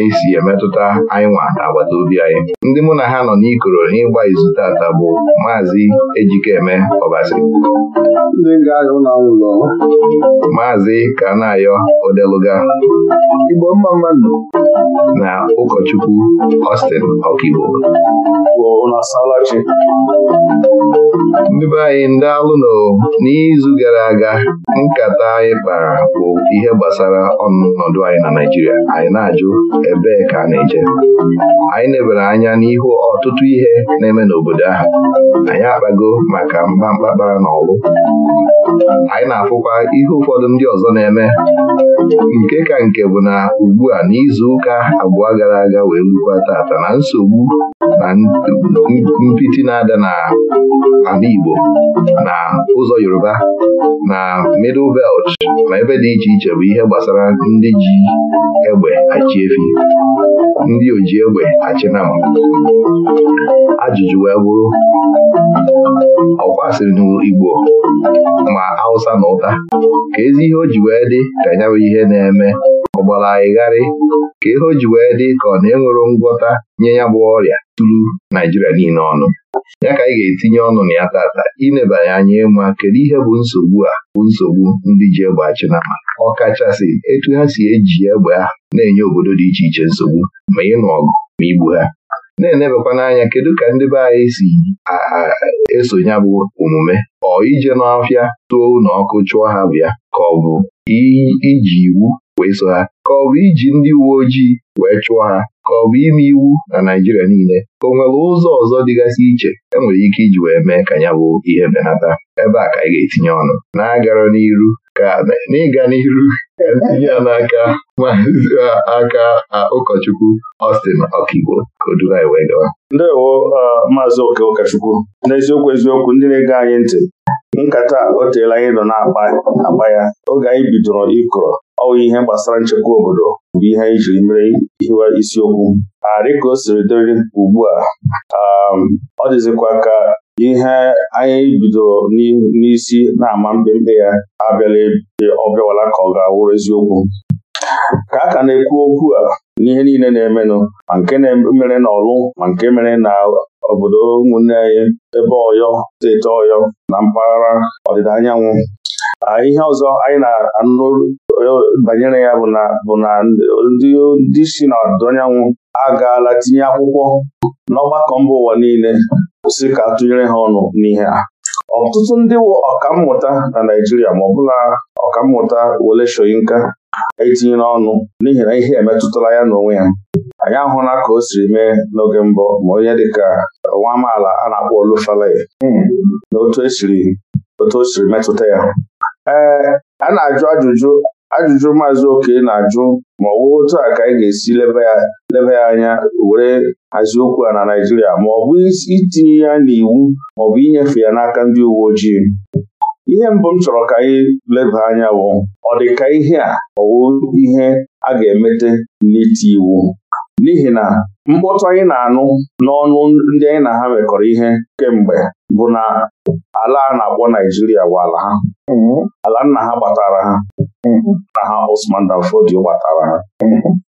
E si emetụta anyị nwa na agbata obi anyị ndị mụ na ha nọ n'ikoro n'ịgba izu tata bụ maazị Ejikeme Ọbasi maazị Kanayo Odeluga na ụkọchukwu Austin Ọkigbo ndị be anyị ndị alụno n'izu gara aga nkata anyị kpara bụ ihe gbasara ọnọdụ anyị na Naijiria anyị na-ajụ ebee ka a na-eje anyị nebere anya n'ihu ọtụtụ ihe na-eme n'obodo ahụ anyị akpago maka mba mkpakpara na ọlụ anyị na-afụkwa ihe ụfọdụ ndị ọzọ na-eme nke ka nke bụ na ugbu a n'izu ụka abụọ gara aga wee lukwa tata na nsogbu na mpịtị na-ada ala Igbo na ụzọ Yoruba na Middle Belt na ebe dị iche iche bụ ihe gbasara ndị ji egbe achị efi ndị oji egbe achịnama ajụjụ wee bụrụ ọkwasịrị n'Igbo ma Hausa na ụta ka ezi ihe o ji wee dị ka ya ihe na-eme ọgbara gbara ịgharị ka ihe o ji wee dị ka ọ na-enwero ngwọta nye ya bụ ọrịa tụrụ Naijiria niile ọnụ ya ka anyị ga-etinye ọnụ na ya tata inebanye anya ịma kedu ihe bụ nsogbu a bụ nsogbu ndị ji egbe ọ ọkachasị etu ha si eji egbe ha na-enye obodo dị iche iche nsogbu ma ịnụ ọgụ ma igbu ha na enebekwa n'anya kedu ka ndị be anyị si esonye bụ omume ọ ije n'ọfịa tụọ ụlọ ọkụ chụọ ha bịa ka ọ bụ iji iwu wee so ha ka ọ bụ iji ndị uwe ojii wee chụọ ha ka ọ bụ ime iwu na Naijiria niile ka o nwere ụzọ ọzọ dịgasị iche enwere ike iji wee mee ka ya bụ ihe benata ebe a ka anyị ga-etinye ọnụ na-agara n'iru ka n'ịga n'ihu ya n'aka maazị aka ụkọchukwu Austin Okigbo ka wee gawa. Ndewo maazị oke ụkọchukwu n'eziokwu eziokwu ndị na-ege anyị ntị nkata o teela anyị nọ na-akpa ya oge anyị bidoro ịkọrọ ọwụ ihe gbasara nchekwa obodo bụ ihe anyị jiri mere hiwa isiokwu dịka o siri dịrị ugbu a ọ dịzikwa ka ihe anyị bidoro n'isi na-ama mbembe ya abịala ọ bịawala ka ọ ga-awụrụ eziokwu ka a ka na-ekwu okwu a n'ihe niile na-emenụ ma nke mere na ọlụ ma nke mere na obodo ụmụnne anyị ebe ọyọ steeti ọyọ na mpaghara ọdịda anyanwụ ihe ọzọ anyị na-anụ banyere ya bụ na ndị si n'ọdịda anyanwụ agaala tinye akwụkwọ n'ọgbakọ mba ụwa niile kwụsị ka tụnyere ha ọnụ n'ihe a ọtụtụ ndị ọkammụta na Naijiria ma ọbụla ọkammụta Wole shoyinka etinyere ọnụ n'ihi na ihe emetụtala ya n'onwe ya anyị ahụla ka o siri mee n'oge mbụ ma onye dịka nwa amaala a na-akpọ Olufalaye hmm. na e otu o siri metụta ya ee a na-ajụ ajụjụ ajụjụ maazị oke na-ajụ ma ọ otu a ka anyị ga-esi leba ya anya were hazie okwu a na Naịjirịa ma ọ bụ itinye ya n'iwu ma ọ bụ inyefe ya n'aka ndị uwe ojii ihe mbụ m chọrọ ka anyị leba anya bụ ọ dị ka ihe a ọ ihe a ga-emete n'iti iwu n'ihi na mkpọtụ anyị na-anụ n'ọnụ ndị anyị na ha mekọrọ ihe kemgbe bụ na ala a na-akpọ Naijiria bụ ala ha ala nna ha gbatara ha nna ha Osman Dan gbatara ha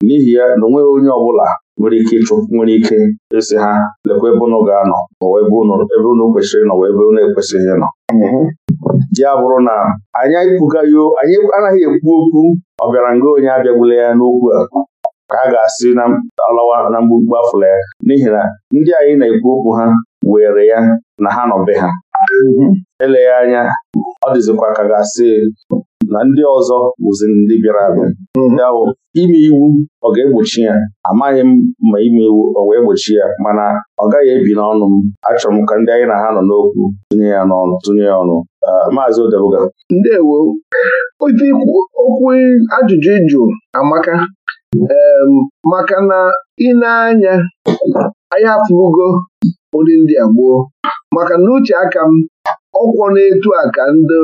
n'ihi ya na onweghị onye ọbụla nwere ike ịchụ nwere ike ịsị ha lekwa ebe ụnụ ga-anọ n'ụwa ebe ụnụ kwesịrị ịnọ ebe unu ekwesịghị ịnọ ya bụrụ na anyị anyị anaghị ekwu okwu ọ bịara nga onye abịagbula ya n'okwu a ka a ga-asị na alawa na mgbugbu afụla ya n'ihi na ndị anyị na-ekwu okwu ha were ya na ha nọ be ha mhm. eleghị anya ọ dịzikwa ka ga-asị na ndị ọzọ bụzi ndị bịara abịa Ndị mhm. bụ ime iwu ọ ga-egbochi ya amaghị m ma ime iwu ọ wee gbochi ya mana ọ gaghị ebi n'ọnụ m achọrọ m ka ndị anyị na ha nọ n'okwu tụnye ya n'ọnụ tụnye ya ọnụ ah, maazị Odebuga ndewo okwu ajụjụ ịjụ amaka maka na ị na-anya anyị afụgo nri ndị a gboo maka na uche aka m ọkwọ na-etu a ka ndị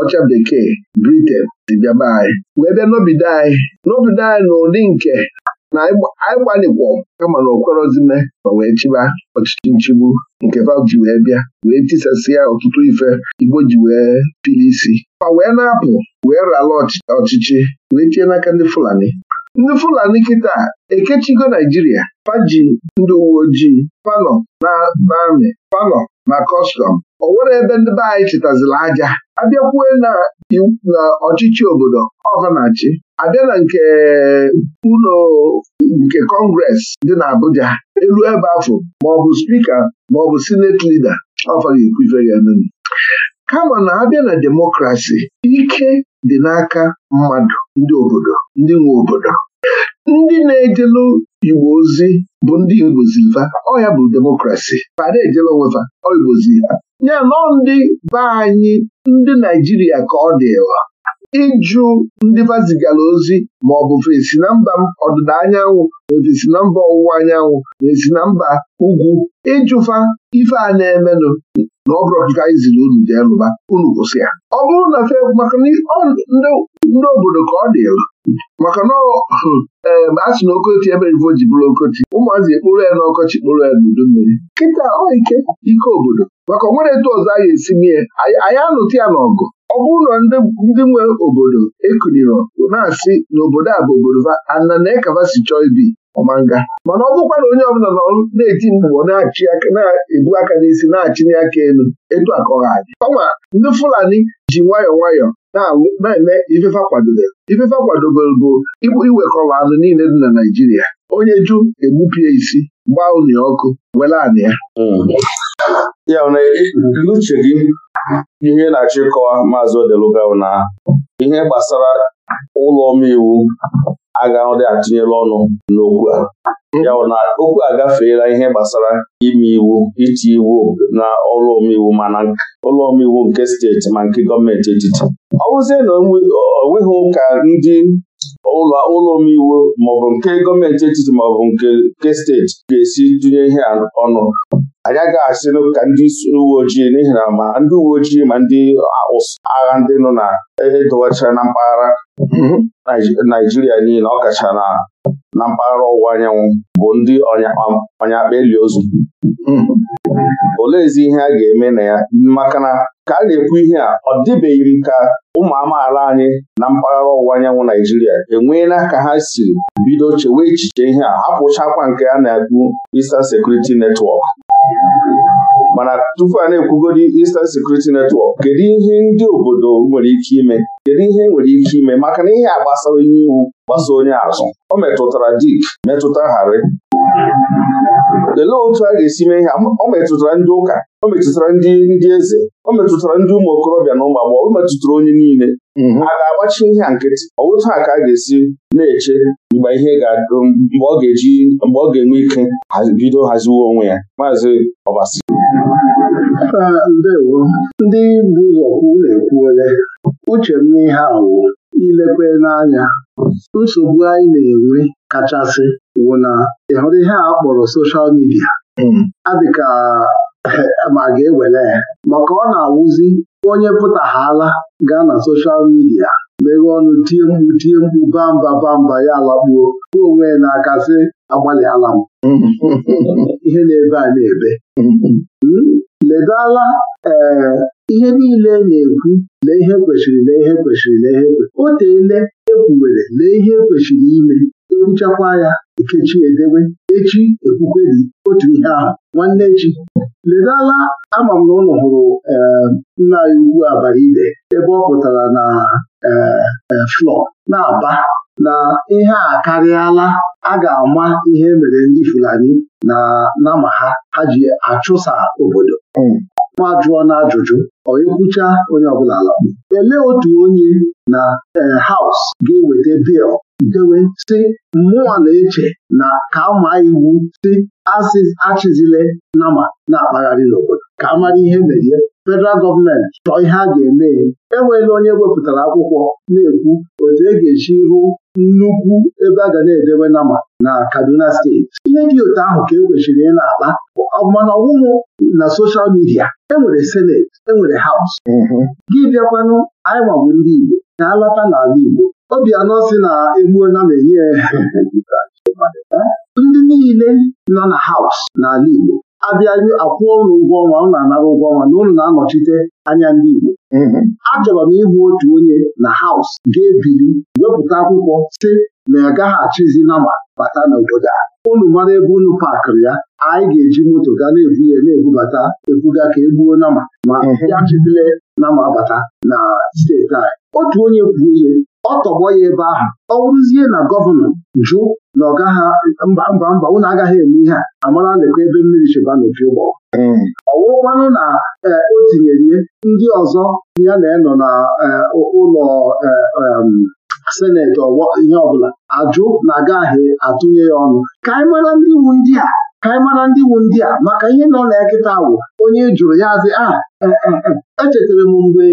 ọcha bekee Britain dị bịaba anyị wee bịa n'obido anyị n'obido anyị n'ụdị nke na anyị gbalikwo kama na okwerozime ma wee chịba ọchịchị nchigbu nke Fab ji wee bịa wee tisasịa ọtụtụ ife Igbo ji wee pili isi ma wee na-apụ wee rala ọchịchị wee tie n'aka ndị Fulani ndị Fulani kịta ekechigo Naijiria paji ndị uwe ojii na amị palọ na kọstọm ọ nwere ebe ndị be anyị chịtazila aja abịakwue na ọchịchị obodo ọvanachi abịa na nke ụlọ nke kọngres dị na Abuja elu ebe afọ maọbụ spika maọbụ sineti lida ọfa ekwufe ya kama na abịa na demokrasi ike dị n'aka mmadụ ndị obodo ndị nwe obodo ndị na-ejelu igbo ozi bụ ndị igboziva ọ ya bụ demokrasi pada ejela onwefa igbozi ha ya nọ ndị be anyị ndị naijiria ka ọ dịwa ịjụ ndị vazigara ozi ma ọ bụ fesi na mba ọdịda anyanwụ ma na mba ọwụwa anyanwụ ma esi na mba ugwu ịjụfa ife a na-emenụ na ọ bụrụ anyị ziri unu jee lụba unu kwụsị ya ọ bụrụ na fe maka ndị obodo ka ọ elu. maka na hmm, a sị na okochi ebe ivo ji bụrụ okochi ụmụazị ekpuru ya n'ọkọchị kpuru ya n'udu mmiri kịta ọ ike ike obodo maka onwere etu ọzọ a ga-esi mie anyị anụta ya n'ọgụ ọ bụrụ na ndị nwe obodo ekuniro na-asị na obodo a bụ obodo ana na ekavasi chọọ ibi ọmanga mana ọ bụkwa na onye ọbụla nọ na-eti mkpu na-achị na-ebu aka n'isi na-achịnye aka elu etu aka ọha ọnwa ndị Fulani ji nwayọọ nwayọọ na-eme ifefa kwadobere ifefa kwadobere igbu iwekọrọ anụ niile dị na Naịjirịa onye ju egbupie isi gbaa unu ọkụ were anị ya hmm. ya n'uche gị ihe na-achọ ịkọwa maazị Odeluga na ihe gbasara ụlọ omeiwu dị atụnyela ọnụ n'okwu a ya na okwu agafeela ihe gbasara ime iwu iti iwu na ụlọ omeiwu mana ụlọ omeiwu nke steeti ma nke gọọmenti etiti ọ bụzie na onweghị ụka ndị ụlọ ụlọ omeiwu maọbụ nke gọọmenti etiti maọbụ nke steeti ga-esi dunye ihe ọnụ anya agaghị asị ka ndị uwe ojii n'ihi na ma ndị uwe ojii ma ndị agha ndị nọ na edowachara e na mpaghara mhm. Naijiria niile ọ kacha na na mpaghara ọwụwa anyanwụ bụ ndị ọnyakpa um, akpa eli ozu hmm. oleezi ihe a ga-eme na ya maka na ka a na-ekwu ihe a ọ dịbeghị m ka ụmụ amaala anyị na mpaghara ọwụwa anyanwụ Naijiria enweela ka ha siri bido chewe echiche ihe a hapụchakwa nke a na-ekwu Eastern sekuriti netwọk mana tupu a na-ekwugodi Eastern Security Network kedu ihe ndị obodo nwere ike ime kedu ihe nwere ike ime maka na ihe a gbasara onye iwu gbasa onye azụ o metụtara dik metụta harị lelee otu a ga-esi mee ihe o metụtara ndị ụka o metụtara ndị ndị eze o metụtara ndị ụmụ okorobịa na ụmụ agbọghọ o metụtara onye niile mhm. a ga-agbachi ihe a nkịtị otu a ka a ga-esi na-eche mgbe ihe ga-adụ mgbe ọ ga-eji mgbe ọ ga-enwe ike bido haziwe onwe ya maazị Ọbasi ndewo ndị bụ ụzọ kwu na ole. uche m n'ihe awụ ilekwe n'anya nsogbu anyị na-enwe kachasị wụ na ịhụrụ ihe a kpọrọ soshal midia hmm. adịka eh, ma ga-ewere Ma maka ọ na-awụzi onye pụtaghala gaa na soshal midia meghee ọnụ tie mkpu tie mkpu bamba bamba ya alakpuo kwuo onwe ya n'aka sị agbalịala m hmm. ihe na-ebe a na-ebe hmm. ledala ee eh, ihe niile na-ekwu lee ihe kwesịrị lee ihe kwesịrị lee ihe o teele ekwuwere lee ihe kwesịrị ime ekwuchakwa ya ekechi edewe echi ekwukweri otu ihe ahụ nwanne echi ledala ama m na ụlọ hụrụ eh, nna ya ugwu abara ibe ebe ọ pụtara na eh, eh, flọ na-aba na ihe a karịala a ga-ama ihe mere ndị Fulani na nama ha ha ji achụsa obodo hmm. ma jụọ na ajụjụ ọ ekwucha onye ọbụla alakpu elee otu onye na haus ga-eweta bil dewe si mmụọ na-eche na ka maa iwu si achịzile nama na-akpagharị n'obodo ka a mara ihe merie federal gọọmenti chọọ ihe a ga-eme enweghị onye wepụtara akwụkwọ na-ekwu otu e ga-eji hụ nnukwu ebe a ga na-edewe nama na Kaduna steeti ihe dị otu ahụ ka e kwesịrị ị na-akpa mana ọwụwụ na soshal midia enwere seneti enwere haus mm-hmm. gị bịakwanụ anyị bụ ndị Igbo na-alata n'ala Igbo anọ si na egbuona m enye ndị niile nọ na haus n'ala Igbo abịa akwụ ụlọ ụgwọ ọnwa ụlọ anara ụgwọ ọnwa na ụlọ na-anọchite anya ndị Igbo achọrọ m ịhụ otu onye na haus ga ebiri wepụta akwụkwọ si na ya gaghị achịzi nama bata n'obodo a Ụlọ mara ebe unu pakịrị ya anyị ga-eji moto gaa na-ebu ya na-ebubata ebuga ka egbuo nama ma ya chibile nama bata na steeti anyị otu onye kwuo ihe ọ tọgbọ ya ebe ahụ ọ bụrụzie na gọvanọ jụ na ọ gaghị mba mba mba unu agaghị eme ihe a amara lekwa ebe mmiri chịba n'opi ụgbọ hmm. ọ na e, o tinyere ihe ndị ọzọ ya na-enọ na e, ụlọ e, seneti ihe ọbụla ajụ na agaghị atụnye ya ọnụ ka anyị mara ndị iwu ndị a ka anyị mara ndị wu ndị a maka ihe nọ na nkịta kịta onye jụrụ ya azị a ah, eh, eh, eh, echetara m mgbe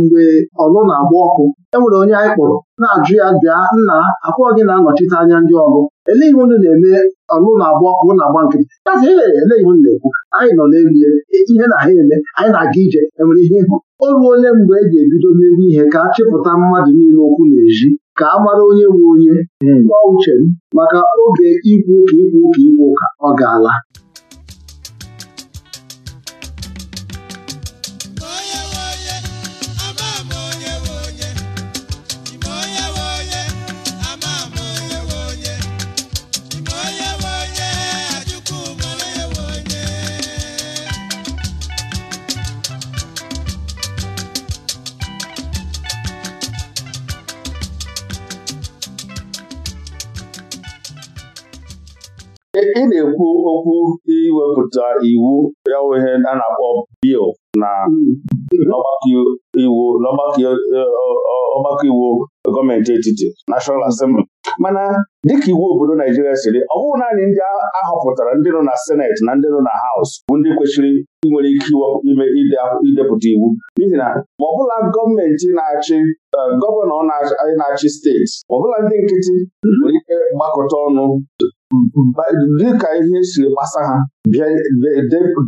mgbe ọlụ na-agba ọkụ enwere onye anyị kpọrọ na-ajụ ya bịa nna akwọ gị na-anọchite anya ndị ọlụ elee ihe unu na-eme ọlụ na-agba ọkụ na-agba nkịtị azị ihe elee ihe unu na-ekwu anyị nọ n'elie ihe na ha eme anyị na-aga ije enwere ihe ịhụ o ole mgbe e ji ebido mewe ihe ka a chịpụta mmadụ niile okwu n'ezi ka a mara onye nwe onye ọ hmm. uche maka oge ikwu ụka ikwu ụka ikwu ka ọ ga ala ị na-ekwu okwu iwepụta iwu ya ihe a na-akpọ bil na hmm. eh, ọgbakọ iwu gọọmenti etiti nashọal Assembly mana dịka iwu obodo Naijiria siri ọ bụghị naanị ndị ahọpụtara ndị nọ na Seneti na ndị nọ na Haus bụ ndị kwesịrị nwere ike ime idepụta iwu n'ihi na ma ọbụla gọọmenti na-achị gọvanọ na-achị steeti ma ọbụla ndị nkịtị nwere ike gbakọta ọnụ dịka ihe siri gbasa ha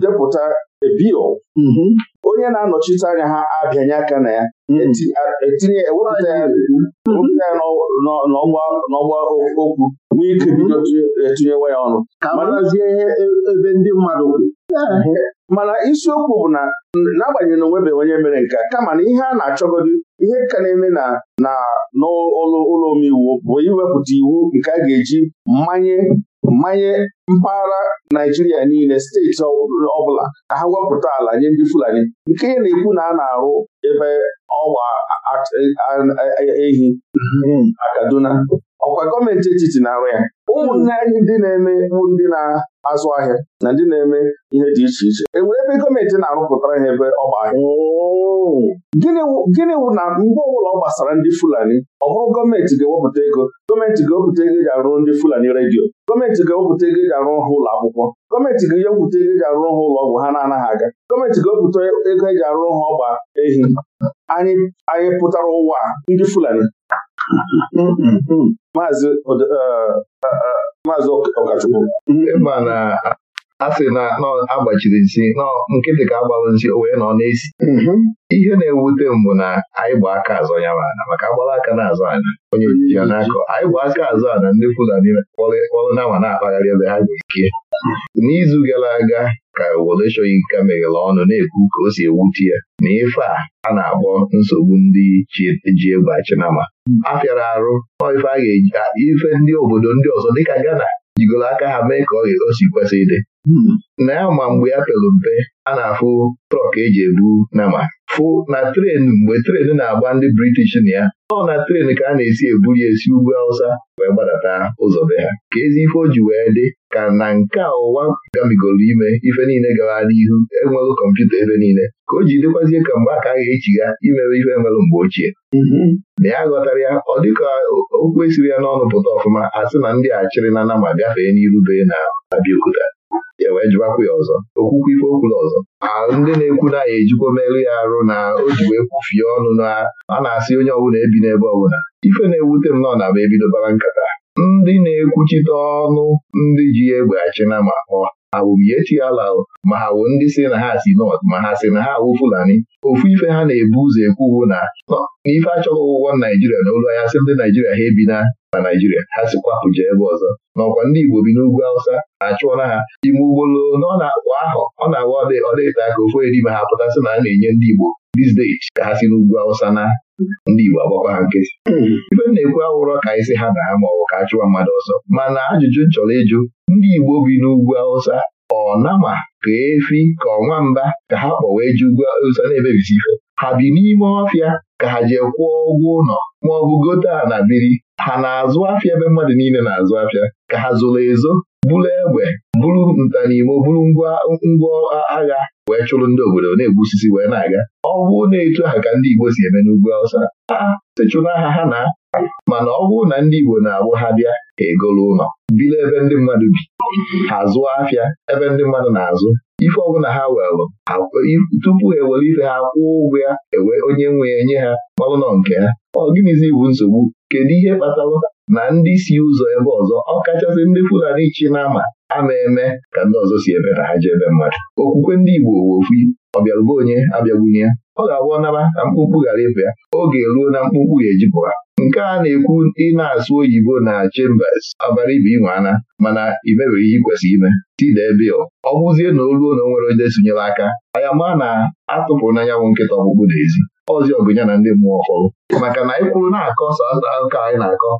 depụta bill mm-hmm. onye na-anọchite anya ha abịanye aka na ya mm-hmm. etinye ewepụta ya n'ọgba okwu n'ike bido etinyewa ya ọnụ e, ebe ndị mmadụ mana isiokwu bụ na n'agbanyeghị na onwebe onye mere nke kama na ihe a na-achọgodi ihe ka na-eme na na n'ụlọ omeiwu bụ iwepụta iwu nke a ga-eji mmanye mmanye mpaghara Naijiria niile steeti ọbụla ka ha wepụta ala nye ndị Fulani nke na-ekwu na a na-arụ ebe ọgba ehi na Kaduna ọkwa gọọmenti etiti na-arụ ya ụmụnne anyị ndị na-eme bụ ndị na azụ ahịa na ndị na-eme ihe dị iche iche e nwere ebe gọọmenti na-arụpụtara ha ebe ọ ahịa oh. gịnị wụ na mgbe ọbụla ọ gbasara ndị Fulani ọ bụrụ gọọmenti ga-ewepụta ego gọọmenti ga-ewepụta ego eji arụ ndị Fulani redio gọọmenti ga-ewepụta ego eji arụ ha ụlọ akwụkwọ gọọmenti ga-ewepụta ego eji arụ ha ụlọ ọgwụ ha na-anaghị aga gọọmenti ga-ewepụta ego eji arụ ha ọgba ehi anyị anyị pụtara ụwa ndị Fulani Mm-hmm. Maazị uh, uh, uh, Ọkachukwu mm-hmm. ma na a sị na agbachiri nsi nọ nkịtị ka agbalụ nsị o wee nọ n'esi mm-hmm. ihe na-ewute mbụ na anyị bụ aka azọ ya mana maka agbara aka na-azọ ana onye ya n'akọ anyị bụ aka azọ ana ndị Fulani kpọrọ nawa na-akpagharị ebe ha ga ike n'izu gara aga ka were chọghị meghere ọnụ na-ekwu ka o si ewute ya na ife a a na-akpọ nsogbu ndị e ji egwu achinama fịara arụ ife a ga-eji ife ndị obodo ndị ọzọ dịka Ghana jigoro aka ha mee ka ọ ga kwesị ịdị Hmm. na ya ma mgbe ya pelu mpe a na-afụ trọk eji ebu nama fụ na tren mgbe tren na-agba ndị british na ya ọ na tren ka a na-esi ebuli esi ugwu Hausa wee gbadata ụzọ be ha ka ezi ife o ji wee dị ka na nke ụwa gabigoro ime ife niile gara n'ihu enwelụ kọmputa ebe niile ka o ji dịkwazie ka mgbe a ka a ga echiga imewe ife nwelụ mgbe ochie mm-hmm. na ya ghọtara ya ọ dịka okwu esiri ya n'ọnụ pụta ọfụma a sị na ndị achịrị na nama gafee n'iru na Abiokuta ya e wee jụwakwa ya ọzọ okwukwe ife okwula ọzọ ndị na-ekwu na ya ejikwa merụ ya arụ na o ji wee kwufie ọnụ na a na-asị onye ọbụla ebi n'ebe ọbụla ife na-ewute m nọ na ma ebidobara nkata ndị na-ekwuchite ọnụ ndị ji ya egbe achịna ma ọ ha bụ biechi ala ma ha wụ ndị si na ha si nọt ma ha si na ha awụ Fulani ofu ife ha na-ebu ụzọ ekwu na ife achọghị ụgwọ Naijiria na olu ya sị ndị Naijiria ha ebi na na Naijiria ha sikwapụ jee ebe ọzọ n'ọkwa ndị Igbo bi n'ugwu Awụsa na-achụọla ha ime ugbolo na ọ na akwa ahụ ọ na-awa ọdịta ka ofu edime ha pụtasị na a na-enye ndị Igbo dizdeit ka ha si n'ugwu Awụsa na ndị Igbo agbakwa ha nkịtị hmm. ibe na-ekwu awụrọ ka anyị si ha na ha ma ọ ka a chụwa mmadụ ọzọ mana ajụjụ chọrọ ịjụ ndị Igbo bi n'ugwu Awụsa ọ nama ka efi ka ọnwa mba ka ha kpọwa ji ugwu Awụsa na-emebisi ife ha bi n'ime ọfịa ka ha jee kwụọ ụgwọ ụlọ ma ọ bụ gote ala biri ha na-azụ afịa ebe mmadụ niile na-azụ afịa ka ha zoro ezo bụrụ egbe bụrụ ntanimo bụrụ ngwa agha wee chụrụ ndị obodo na-egbu osisi wee na-aga ọ bụrụ na etu ha ka ndị Igbo si eme n'ugwu Awụsa aa sechụrụ aha ha na mana ọ bụrụ na ndị Igbo na-abụ ha bịa egolu ụlọ bido ebe ndị mmadụ bi ha zụọ afịa ebe ndị mmadụ na-azụ ife ọbụla ha welụ tupu ha ewere ife ha kwụọ ụgwọ ya ewe onye nwe ya nye ha ọlụnọ nke ha ọ gịnịzi bụ nsogbu kedu ihe kpatalụ na ndị si ụzọ ebe ọzọ ọkachasị ndị Fulani chi na-ama ama eme ka ndị ọzọ si ebe na ha ji ebe mmadụ okwukwe ndị Igbo ofu ọbịalụba onye abịagbunye ọ ga agwọ naba ka mkpụmkpụ ghara ịpụ ya oge ruo na mkpụmkpụ ga-ejipụ nke a na-ekwu ị na-asụ oyibo na Chambers abara ibe ana, mana imebere ihe ikwesịrị ime Tide ebe ọ bụzie na oluo na onwere onye sonyere aka anya maa na atụpụrụ n'anyanwụ nkịta ọkpụkpụ n'ezi ọzi ọgụnya na ndị mmụọ ọhụrụ maka na anyị kwuru na-akọ sọ ka anyị na-akọ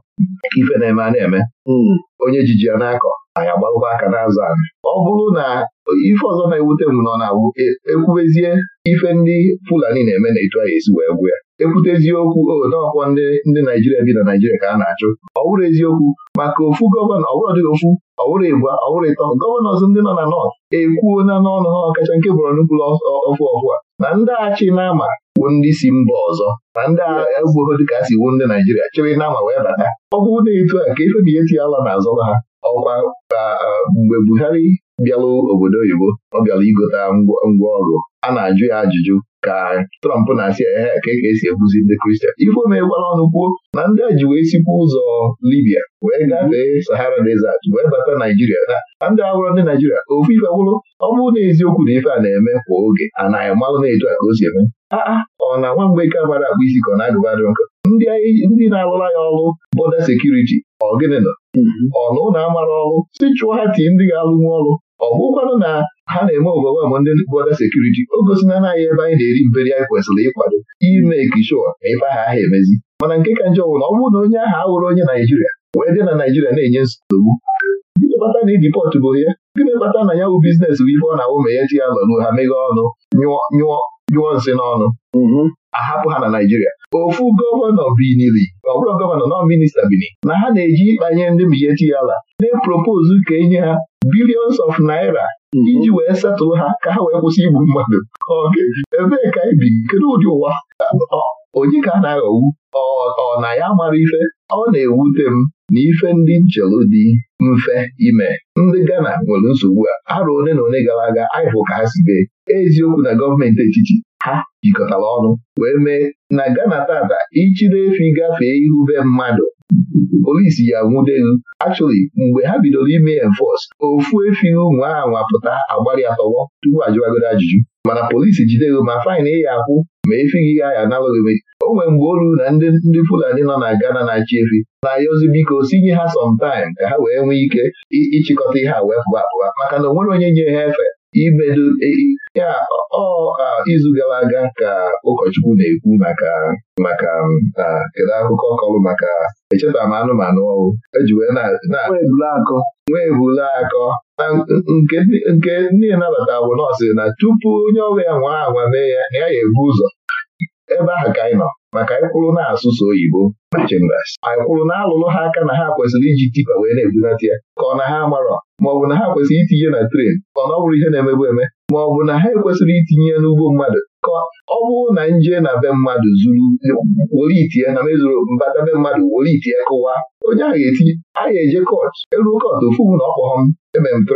ife na-eme a na-eme hmm. onye jiji ya na-akọ anyị agbalụkwa aka n'azụ anyị ọ bụrụ na ife ọzọ na-ewute m nọ na e, ekwubezie ife ndị Fulani na-eme na etu anyị esi wee gwụ ya ekwute eziokwu odoọkwọ ndị ndị Naijiria bi na Naijiria ka a na-achụ ọ bụrụ eziokwu maka ofu gọvanọ ọbụrụ dị ofu ọbụrụ ịbụa ọbụrụ ịtọ gọvanọ ndị nọ na nọt ekwuo na n'ọnụ ha ọkacha nke bụrụ nnukwu ọfụ ọfụ a na ndị achị na-ama wu ndị si mba ọzọ na ndị agha ebuo dịka a si wu ndị Naijiria chịrị nama wee bata ọ bụrụ na etu a ka ife na ihe tinye ala na ha ọkwa ah, mgbe Buhari bịalụ obodo oyibo ọ bịara igote ngwa ọrụ a na-ajụ ya ajụjụ ka Trump na-asị ehe ka e esi ebuzi ndị Kristian ife megbara ọnụ kwuo na ndị a ji wee sikwa ụzọ Libia wee gafee hmm. Sahara Desert wee bata Naijiria na ndị awụrụ ndị Naijiria ofu ife gwụrụ ọ bụrụ na eziokwu na ife a na-eme kwa oge a na-amalụ na-etu a ka o si eme aa ọ na nwa mgbe ike amara akpụ isi ka ọ na-agụbadị nkọ ndị na alụla ya ọrụ bọda sekuriti ọ gịnị nọ hmm. ọ na ụlọ amara ọrụ si chụọ ha tii ndị ga-alụnwu ọrụ ọ bụkwanụ na ha na-eme overwhelm ndị bọda sekuriti o gosina naghị ebe anyị na-eri mberi anyị kwesịrị ịkwado ime sure na ebe ahụ aha emezi mana nke ka njọ wụrụ ọ bụrụ na onye ahụ awụrụ onye Naijiria wee dị na Naijiria na-enye nsogbu gịnị kpata na iji pọtụ bụ ya gịnị kpata na ya wụ biznes bụ ife ọ na-awụ ma ya ji ya ha meghe ọnụ nyụọ nsị n'ọnụ mhm. ahapụ ha na Naijiria ofu gọvanọ binili ọ bụrụ gọvanọ nọ minista bini na ha na-eji ịkpanye ndị ya ala na-epropozu ka enye ha bilions of naira mhm. iji wee setụlụ ha ka ha wee kwụsị igbu mmadụ ebee ka anyị bi kedu ụdị ụwa onye ka a na-aghọgbu ọ na ya mara ife ọ na-ewute m na ife ndị nchelu dị mfe ime ndị Ghana nwere nsogbu a arụ one na one gara aga anyị ka ha si bee eziokwu na gọọmenti etiti ha jikọtara ọnụ wee mee na Ghana tata ichiri efi gafee ihu be mmadụ polisi ya nwudelu Actually, mgbe ha bidoro ime enforce ofu efi ụmụ aha nwapụta agbara ya tọwọ tupu ajụwagoro ajụjụ mana polisi jidego ma fain ị ya akwụ ma efi gị ya analụghị o nwere mgbe olu na ndị Fulani nọ na Ghana na-achị efi na-ayọzi biko sinye ha sọmtaim ka ha wee nwee ike ịchịkọta ihe a wee pụba apụba maka na o nwere onye nye ha efe ibedo e, ya ọ izu gara aga ka ụkọchukwu na-ekwu maka maka kedu akụkọ bụ maka echeta m anụmanụ ọrụ eji wee nwee ebule akọ nke ndị nabata bụ nọọsụ na tupu onye ọrụ ya nwa anwa mee ya ya ga-ebu ụzọ ebe ahụ ka anyị nọ maka anyị na-asụsụ oyibo na chambers anyị na alụlụ ha aka na ha kwesịrị iji tipa wee na-ebunata ya ka ọ na ha amarọ maọbụ na ha kwesịrị itinye na tren ka ọ na ọ bụrụ ihe na-emebu eme maọbụ na ha ekwesịrị itinye ya n'ugbo mmadụ ka ọ bụrụ na nje na be mmadụ zuru were itie na mezuru mbata be mmadụ were itie kụwa onye a ga-etinye a ga-eje kọt elu kọt ofu na ọkpọghọ e m eme m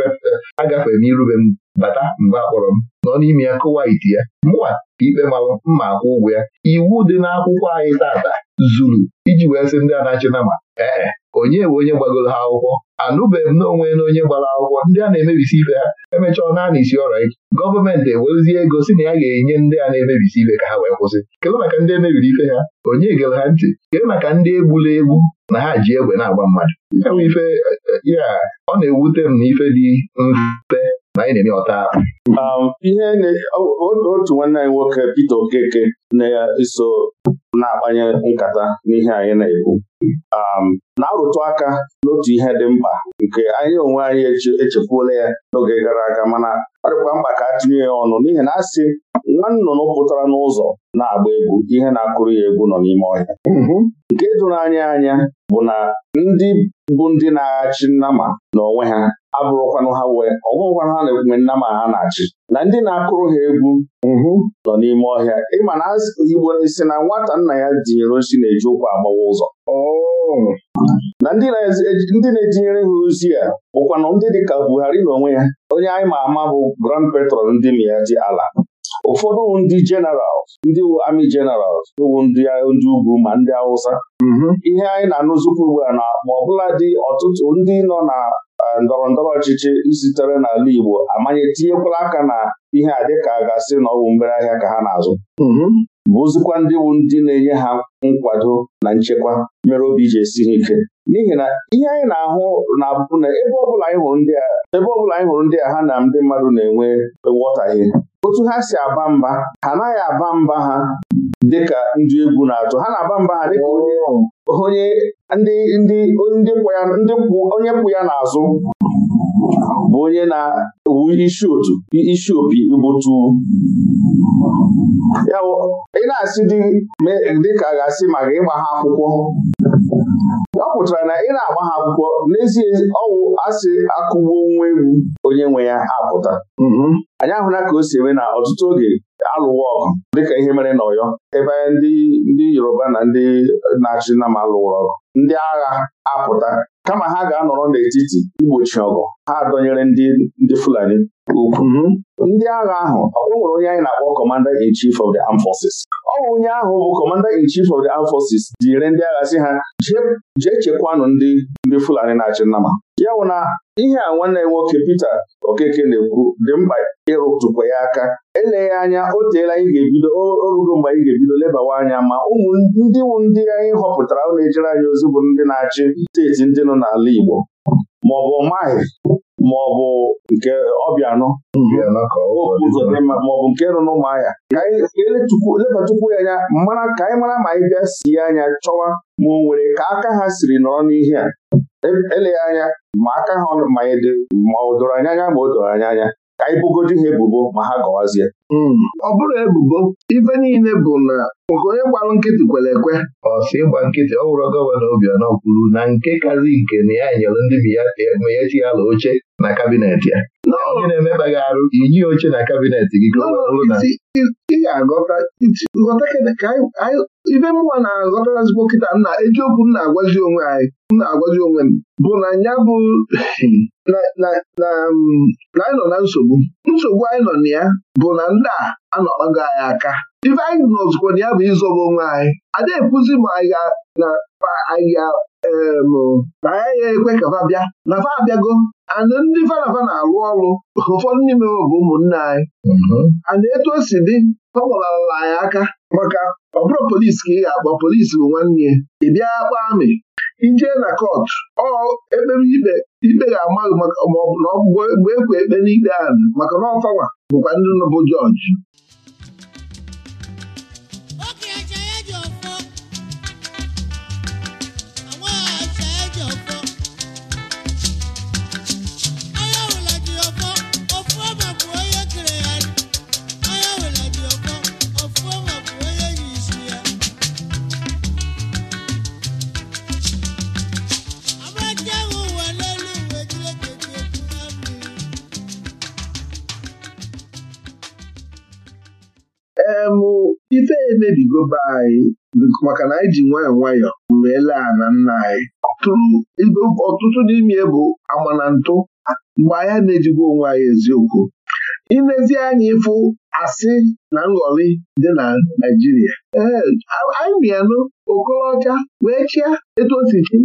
agafe m irube m bata mgbe akpọrọ m nọ n'ime ya kụwa iti ya mụwa ikpe mara mma akwụ ụgwọ ya iwu dị n'akwụkwọ anyị tata zuru iji wee sị ndị anachinama ee onye bụ onye gbagoro ha akwụkwọ anụbeghị m onwe na onye gbara akwụkwọ ndị a na-emebisi ibe ha emechaa naanị isi ọrịa ike gọọmenti ewerezie ego si na ya ga-enye ndị a na-emebisi ibe ka ha wee kwụsị kedu maka ndị emebiri ife ha onye gere ha ntị kedu maka ndị egbula egbu na ha ji egbe na-agba mmadụ e, e, ya ọ na-ewute m na ife dị mfe na-eme ọta. Um, ihe otu nwanne anyị nwoke Peter Okeke na-eso na-akpanye nkata n'ihe anyị na-ekwu um, na-arụtụ aka n'otu ihe dị mkpa nke anyị onwe anyị echefuola ya n'oge gara aga mana ọ dịkwa mkpa ka a tinye ya ọnụ n'ihi na asị nwa nnụnụ pụtara n'ụzọ na-agba egwu ihe na-akụrụ ya egwu nọ n'ime ọhịa mm-hmm. nke doro anyị anya bụ na ndị bụ ndị na-achị nnama na onwe ha abụrụkwanụ ha wee ọbụrụkwanụ ha na-ekwe nnama ha na-achị na ndị na-akụrụ ha egwu mm-hmm. nọ n'ime ọhịa ịma na Igbo na nwata nna ya tinyere osi na-eji ụkwụ agbawa ụzọ oh. na ndị na-etinyere ha ozi a bụkwana ndị ka Buhari na onwe ya onye anyị ma ama bụ Grand Petrol ndị Miyaji ala ụfọdụ ndị jeneral ndị amị jeneral bụ ndị ugwu ma ndị Hausa mm-hmm. ihe anyị na-anụzikwa ugbu a na ma ọbụla dị ọtụtụ ndị nọ na ndọrọ ndọrọ ọchịchị sitere n'ala Igbo amanye tinyekwala aka na ihe a dịka a ga-asị na ọwụ mgbere ahịa ka ha na-azụ mhm. bụzikwa ndị bụ ndị na-enye ha nkwado na nchekwa mere obi ji esi ha ike n'ihi na ihe anyị na-ahụ na-abụ na ebe ọbụla anyị hụrụ ndị a ebe ọbụla anyị hụrụ ndị a ha na ndị mmadụ na-enwe nghọtahie otu ha si aba mba ha anaghị aba mba ha dịka ndị egwu na-atụ ha na-aba mba ha dịka onye kwụ ya n'azụ bụ onye na-ewu isi opi igbutu ya ị na-asị dị dịka a ga-asị maka ịgba ha akwụkwọ ọ pụtara na ị na-agba ha akwụkwọ n'ezie ọwụ asị akụgbuo nwa ewu onye nwe ya apụta mm-hmm. anyị ahụla ka o si eme na ọtụtụ oge alụwa ọgụ dịka ihe mere n'Ọyọ ebe ndị Yoruba na ndị na-achị Nam alụwụrụ ọgụ ndị agha apụta kama ha ga-anọrọ n'etiti igbochi ọgụ ha adọnyere ndị ndị Fulani ukwu mhm. ndị agha ahụ ọ nwere onye anyị na-akpọ Commander in Chief of the Armed Forces ọ bụ onye ahụ bụ Commander in Chief of the Armed Forces jiri ndị agha si ha jee chekwanụ ndị ndị Fulani na-achị nnama ya wụ na ihe a nwanne ya nwoke Peter Okeke na-ekwu dị mkpa ịrụtụkwa ya aka eleghị anya o teela anyị ga-ebido orugo mgbe anyị ga-ebido lebawa anya ma ụmụ ndị ndị anyị họpụtara na-ejere anyị ozi bụ ndị na-achị steeti ndị nọ n'ala Igbo ma ọ bụ nke ọbịanụ maọbụ nke nọ n'ụmụahịa ka anyị lebatukwu ya anya mara ka anyị mara ma anyị bịa sie anya chọwa ma o nwere ka aka ha siri nọrọ n'ihe a eleghị anya ma aka ha e ma o doro anya anya ma o doro anya anya ka anyị ha ebubo ma ha gọwazie hmm. ọ bụrụ ebubo ife niile bụ na nke onye gbarụ nkịtị kwere ekwe ọsị ịgba nkịtị ọ wụrụ gọvanọ Obianọ kwuru na nke kazi nke na ya nyere ndị meyechi ala oche na kabinet ya na na-emekpaghị arụ iyi oche na kabinet gị ka ị ga-aghọta ka ibe mụnwa na ezigbo kịta nna ejiokwu m na-agwazi onwe anyị m na-agwazi onwe m bụ na ya bụ na anyị nọ na nsogbu nsogbu anyị nọ na ya bụ na ndị a anọkpago anyị aka ife anyị nọzikwa na ya bụ ịzọba onwe anyị ada ekwuzi ma anyị na anyị na anyị ya ekwe ka fa bịa na fa abịago ndị fa na arụ alụ ọrụ ụfọdụ n'ime bụ ụmụnne anyị mhm. and etu o si dị ọ gbalarala ya aka maka ọ bụrụ polisi ka ị ga-akpọ polisi bụ nwanne ị bịa akpa amị ije na kọtụ ọ ekpere ibe ikpe ga-amaghị maọbụ na bụ ekwe e ekpe n'ikpe ahụ maka na ọfawa bụkwa ndị nọbụ jọji em ife emebigo be anyị maka na anyị ji nwayọọ nwayọọ wee laa na nna anyị ọtụtụ n'ime bụ amanantụ mgbe anyị na-ejigwa onwe anyị eziokwu ilezi anya ịfụ asị na nghọrị dị na Naịjirịa ee anyị bịanụ Okorocha wee chịa etu osisi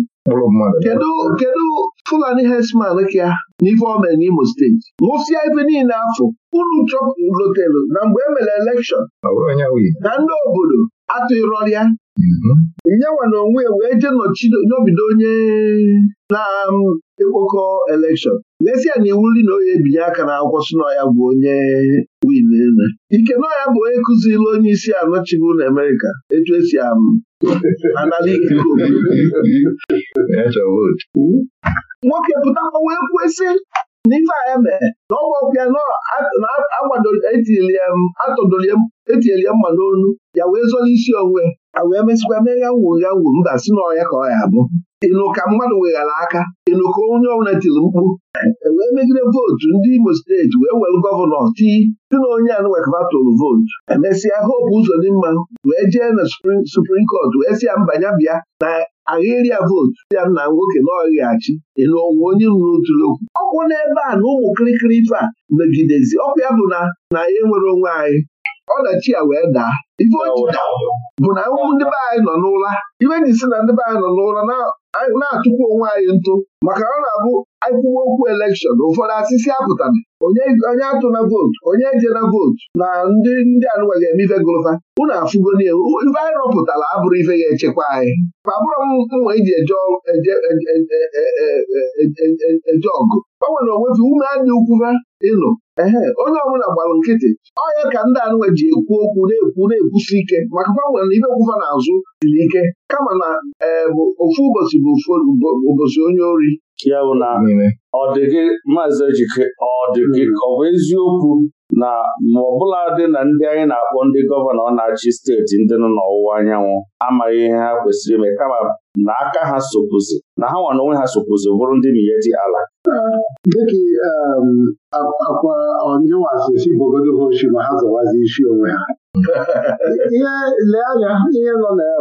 kedu Fulani herdsman ka na o mere n'Imo steeti nwụsịa ife niile afọ uru chọpụlotelu na mgbe e mere elekshọn na ndị obodo atụrọrịa mhm. nyenwa na onwe wee je nọbido onye na-ekpokọ elekshọn lesịa na um, iwu nri na onye ebinye aka na akwụkwọ si ya bụ onye win ike nọ ya bụ onye kụziri onye isi anọchibu na Amerika, etu esi anara ikike nwoke pụtakwa wee kwesị ndị ife anya mee na ọgwọpịa etinyeli mma n'olu ya wee zọrọ isi onwe a wee mesịkwa mee ya nwuru ya nwuru mba si n'ọrịa ka ọ ya abụ ịnụ ka mmadụ weghara aka ịnụ ka onye ọbụla tiri mkpu e wee megide vootu ndị Imo steeti wee were gọvanọ tii dị na onye tụrụ vootu emesịa Hope Uzodimma wee jee na suprim kọt wee sị ya mbanya bịa na ahịrịa ya vootu ya na nwoke na ọghịghachi Ịnụ onwe onye ruru otu okwu ọ n'ebe a na ụmụ kirikiri ife a megidezi ọkwa ya bụ na na ya enwere onwe anyị ọdachi ya wee daa ife ochita bụ na ndị be anyị nọ n'ụra e ji si na ndị be anyị nọ n'ụra na atụkwa onwe anyị ntụ maka ọ na-abụ agụwa okwu elekshọn ụfọdụ asịsị apụtara onye atụna vootu onye ejena vootu na ndị ndị anụwa ga-eme ife gụlụfa unu afụgo n'ihu ife anyị rọpụtara abụrụ ife ga-echekwa anyị abụrụ m mma iji eje ọgụ e, e, e, gbanwere onwefe ume anya ukwufa ịnụ ehe onye ọbụla gbalụ nkịtị ọya ka ndị anụnwe ji ekwu okwu na-ekwu na-ekwusi ike maka gbanwere na ibe na n'azụ siri ike kama na eh, ofu ụbọchị bụ ofu ụbọchị onye ori ya bụ na ọ dị gị maazị Ejike ọ dị gị hmm. ọ bụ eziokwu na ma ọ bụla dị na ndị anyị na-akpọ ndị gọvanọ na-achị steeti ndị nọ n'ọwụwa anyanwụ amaghị ihe ha kwesịrị ime kama na aka ha sokwuzi na ha nwa na onwe ha sokwuzi bụrụ ndị miyeti ala dịka ehm, akwa si ọnyịwasịsi bogodogoshi ma ha zọwazi isi onwe ha ihe lee anya ihe nọ na ya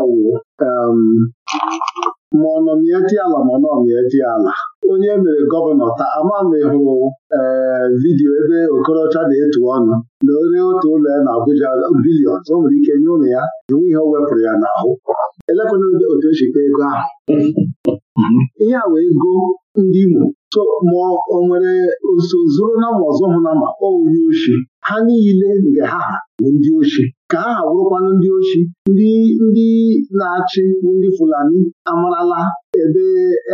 ehm, ma ọ nọmieji ala ma ọ nọmieji ala onye mere gọvanọ taa amamehụ ee vidiyo ebe Okorocha na-etu ọnụ na onye otu ụlọ ya na Abuja bilion o nwere ike nye ụlọ ya enwe ihe o wepụrụ ya n'ahụ elekwana otu echikwa ego ahụ ihe a wee ego ndị Imo so ma ọ nwere nso zuru na ma ọzọ hụ na ma onye oshi ha niile nke ha bụ ndị oshi ka aha wụrụkwanụ ndị ochi ndị ndị na-achị ndị Fulani amarala ebe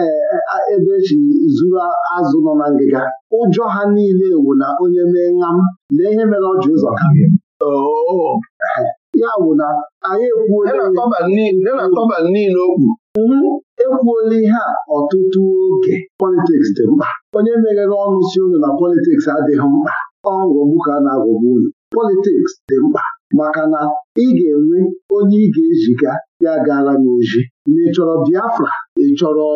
e, e, ebe echi zuru azụ nọ na ngịga ụjọ ha niile wu na onye mee ṅam lee ihe mere ọ ji ụzọ kabịa ya bụ na anyị ekwuola niile okwu mhm. ekwuola ihe a ọtụtụ oge politiks dị mkpa onye meghere ọnụ si unu na politiks adịghị mkpa ọ ghọgbu ka a na-aghọgbu unu politiks dị mkpa maka na ị ga-enwe onye ị ga-eziga ya gaala n'ozi ma ị chọrọ Biafra ị chọrọ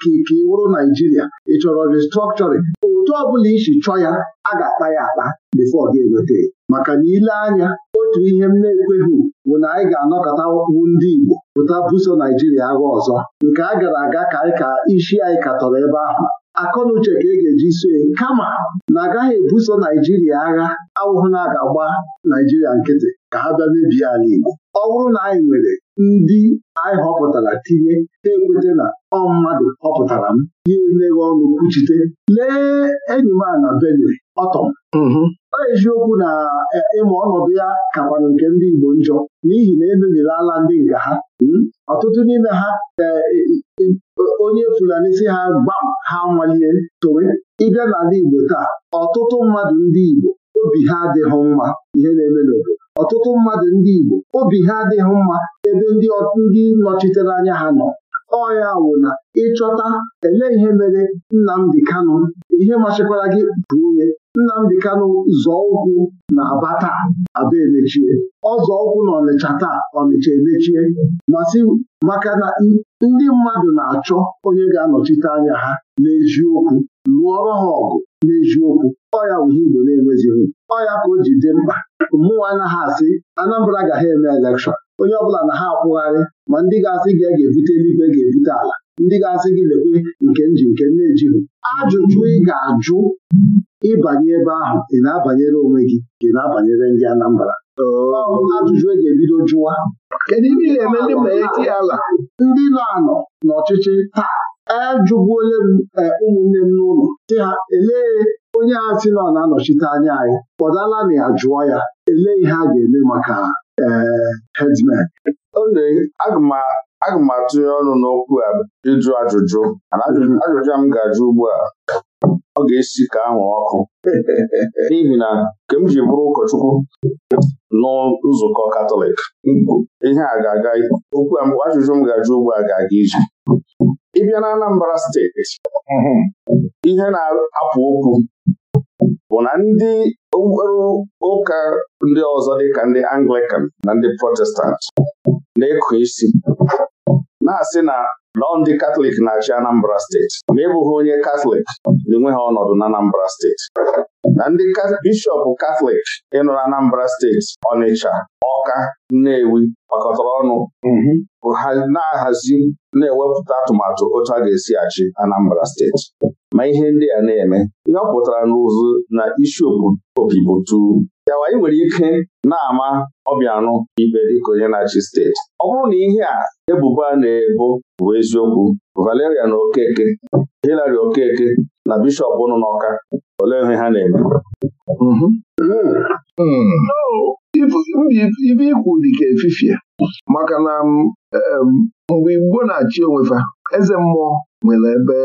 ka ị wụrụ Naijiria ị chọrọ restructuring otu ọbụla isi chọọ ya a ga-akpa ya akpa bifo ọ ga-eweta maka na ile anya otu ihe m na-ekweghị bụ na anyị ga-anọkọta ndị Igbo pụta buso Naijiria agha ọzọ nke a gara aga ka anyị ka isi anyị katọrọ ebe ahụ akọnuche ka e ga-eji sue, kama na agaghị ebuso Naijiria agha awụhụ na a ga-agba Naijiria nkịtị ka ha bịa mebie ala Igbo ọ bụrụ na anyị nwere ndị anyị họpụtara tinye na ekweta na ọ mmadụ họpụtara m ya emeghe ọnụ kwuchite lee enyi m a na Benue ọtọm mm-hmm. ọ eziokwu na e, ịma ọnọdụ ya kakwanụ nke ndị Igbo njọ n'ihi na emebirala ndị nga ha hmm? ọtụtụ n'ime ha e, e, onye Fulani si ha gbam ha nwalie towe ịbịa n'ala Igbo taa ọtụtụ mmadụ ndị Igbo obi ha adịghị mma ihe na-eme n'obodo ọtụtụ mmadụ ndị Igbo obi ha adịghị mma ebe ndị ndị nọchitere anya ha nọ Ọnya wụ na ịchọta ele ihe mere Nnamdi Kano, ihe machikwara gị bụ onye Nnamdi Kano zọọ ụkwụ na Aba taa Aba emechie ọ zọọ ụkwụ na Ọnịcha taa Ọnịcha emechie masị maka na ndị mmadụ na-achọ onye ga-anọchite anya ha n'eziokwu lụọrọ ha ọgụ n'eziokwu ọ ya igbo na-enwezighị ọ ka o ji dị mkpa mmụọ anaghị asị Anambra ga eme elekshọn onye ọbụla na ha akwụgharị ma ndị ga-asị gị e ga-ebute eluigwe e ga-ebute ala ndị ga-asị gị lekwe nke nji nke na-ejighị ajụjụ ị ga-ajụ ịbanye ebe ahụ ị na-abanyere onwe gị dị na-abanyere ndị Anambra ajụjụ e ga-ebido jụwa kedu ihe ị ga-eme ndị ma eti ala ndị nọ anọ n'ọchịchị taa ajụgbuole m e, ụmụnne m n'ụlọ sị ha elee onye a sị na ọ na-anọchite anya anyị kpọdala na ya jụọ ya elee ihe a ga-eme maka ee hedsmen aga m atụnye ọnụ n'okwu a ịjụ ajụjụ ajụjụ a m ga-ajụ ugbu a ọ ga-esi ka ahụ ọkụ n'ihi na nke m ji bụrụ ụkọchukwu nzukọ Katọlik ihe a ga-aga okwu ajụjụ m ga-ajụ ugbu a ga-aga ije ịbịa na Anambra steeti mhm. ihe na-apụ okwu bụ na ndị okpukpere ụka ndị ọzọ dị ka ndị Anglican na ndị Protestant na-ekụ isi na-asị na nọ ndị katọlik na-achị Anambra steeti ma ị e bụghị onye katọlik na ha ọnọdụ na Anambra steeti na ndị bishọp katọlik ịnọ na Anambra steeti Ọnịcha Ọka Nnewi gbakọtara ọnụ mhm. bụ ha na-ahazi na-ewepụta atụmatụ otu a ga-esi achị Anambra steeti ma ihe ndị a na-eme ihe ọ pụtara n'ụzụ na isi opi bụ tu yawa ị nwere ike na-ama ọbịanụ ibe dịka onye na-achị steeti ọ bụrụ na ihe a ebubo a na-ebo bụ eziokwu Valeria na Okeke Hilary Okeke na bishọp ụnụ n'Ọka olee ihe ha na-eme mhm. hmm. hmm. ibe ikwu dị ka efifie maka na um, um, mgbe Igbo na-achị onwefa eze mmụọ nwere ebe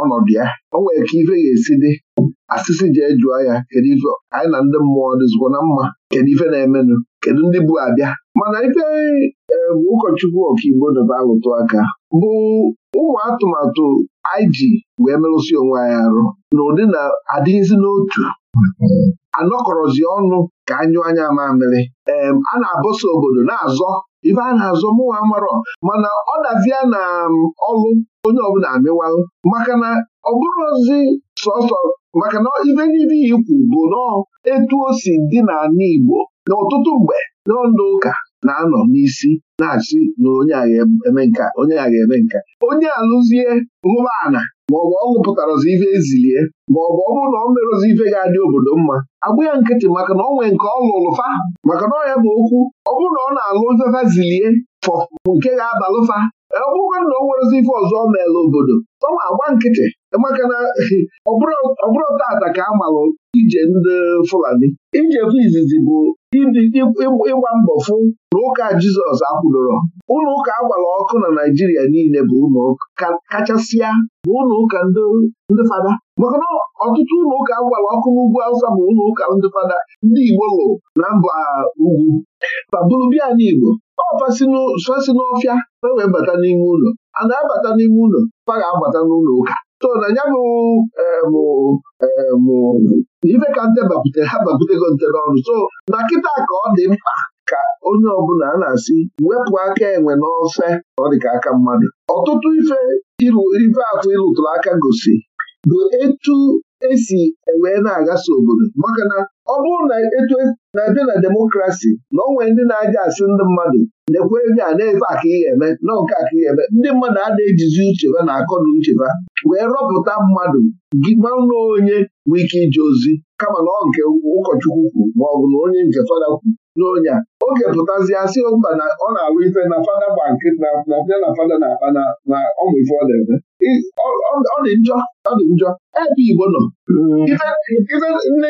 ọnọdụ ya o nwere ka ife ga-esi dị asịsị ji ejụọ ya kedu ife anyị na ndị mmụọ dịzikwa na mma kedu ife na-emenụ kedu ndị bụ abịa mana ife ụkọchukwu ọkaigbo debe alụtụ aka bụ ụmụ atụmatụ anyị ji wee merụsi onwe anyị arụ na ụdị na adịghịzi n'otu anọkọrọzi ọnụ ka anyụ anya mamịrị ee a na-abọsa obodo na-azọ ife a na-azọ mụnwa marọ mana ọ dazia na um, ọlụ onye ọbụla amịwalụ maka na ọ bụrụ ozi sọsọ maka na ibe niile ikwu bụ nọọ etu o si dị n'ala Igbo n'ọtụtụ mgbe n'ọndụ ụka na-anọ n'isi na-achị na onye agha eme nka onye agha eme nka onye alụzie hụba ana maọbụ ọ lụpụtarozi ife ezilie ma ọ bụrụ na ọ merụzi ife ga-adị obodo mma agbụ ya nkịtị maka na ọ nwee nke ọ lụrụ fa maka na ọ ya bụ okwu ọ bụrụ na ọ na-alụ fefa zilie fọ nke ga-abalụfa ọ bụrụ na o nwerezi ife ọzọ ọ meela obodo ọ agba nkịtị maka na ọbụrụ tata ka a malụ ije ndị Fulani ijefu izizi bụ ịgba mbọ fụ na ụka Jizọs akwụdoro ụlọ ụka agbara ọkụ na Naijiria niile bụ ụlọ kachasịa bụ ụlọ ụka ndị fada maka na ọtụtụ ụlọ ụka agbara ọkụ n'ugwu Awụsa bụ ụlọ ụka ndị fada ndị Igbo lụ na mba ugwu ma bụrụbịa n'Igbo ọfasi n'ọfịa e wee bata n'ime ụlọ a na-abata n'ime ụlọ fa ga-abata n'ụlọ ụka so na ya bụ ife e, ka nte bakwute ha bakwutego nte n'ọnụ so na kịta ka ọ dị mkpa ka onye ọbụla a na-asị wepụ aka enwe n'ofe ọ dị ka aka mmadụ ọtụtụ ife ife atụ ịlụtụrụ aka gosi bụ etu esi wee na-agasa obodo maka na ọ bụrụ na etu e na-abịa na demokrasi na onwe ndị na-aja asị ndị mmadụ lekwe ego a na-efe aka ihe eme na nke aka ihe eme ndị mmadụ a na-ejizi ucheba na akọ na ucheba wee rọpụta mmadụ gị manụ na onye nwee ike ije ozi kama na ọ nke ụkọchukwu kwuru ma ọ bụ na onye nke fada kwuru n'ọnya oge pụtazie asị mba na ọ na-alụ ife na fada bank na bịa na fada na-akpa na ọmụ ife ọ na-eme ọ dị njọ ọ dị njọ ebe Igbo nọ hmm.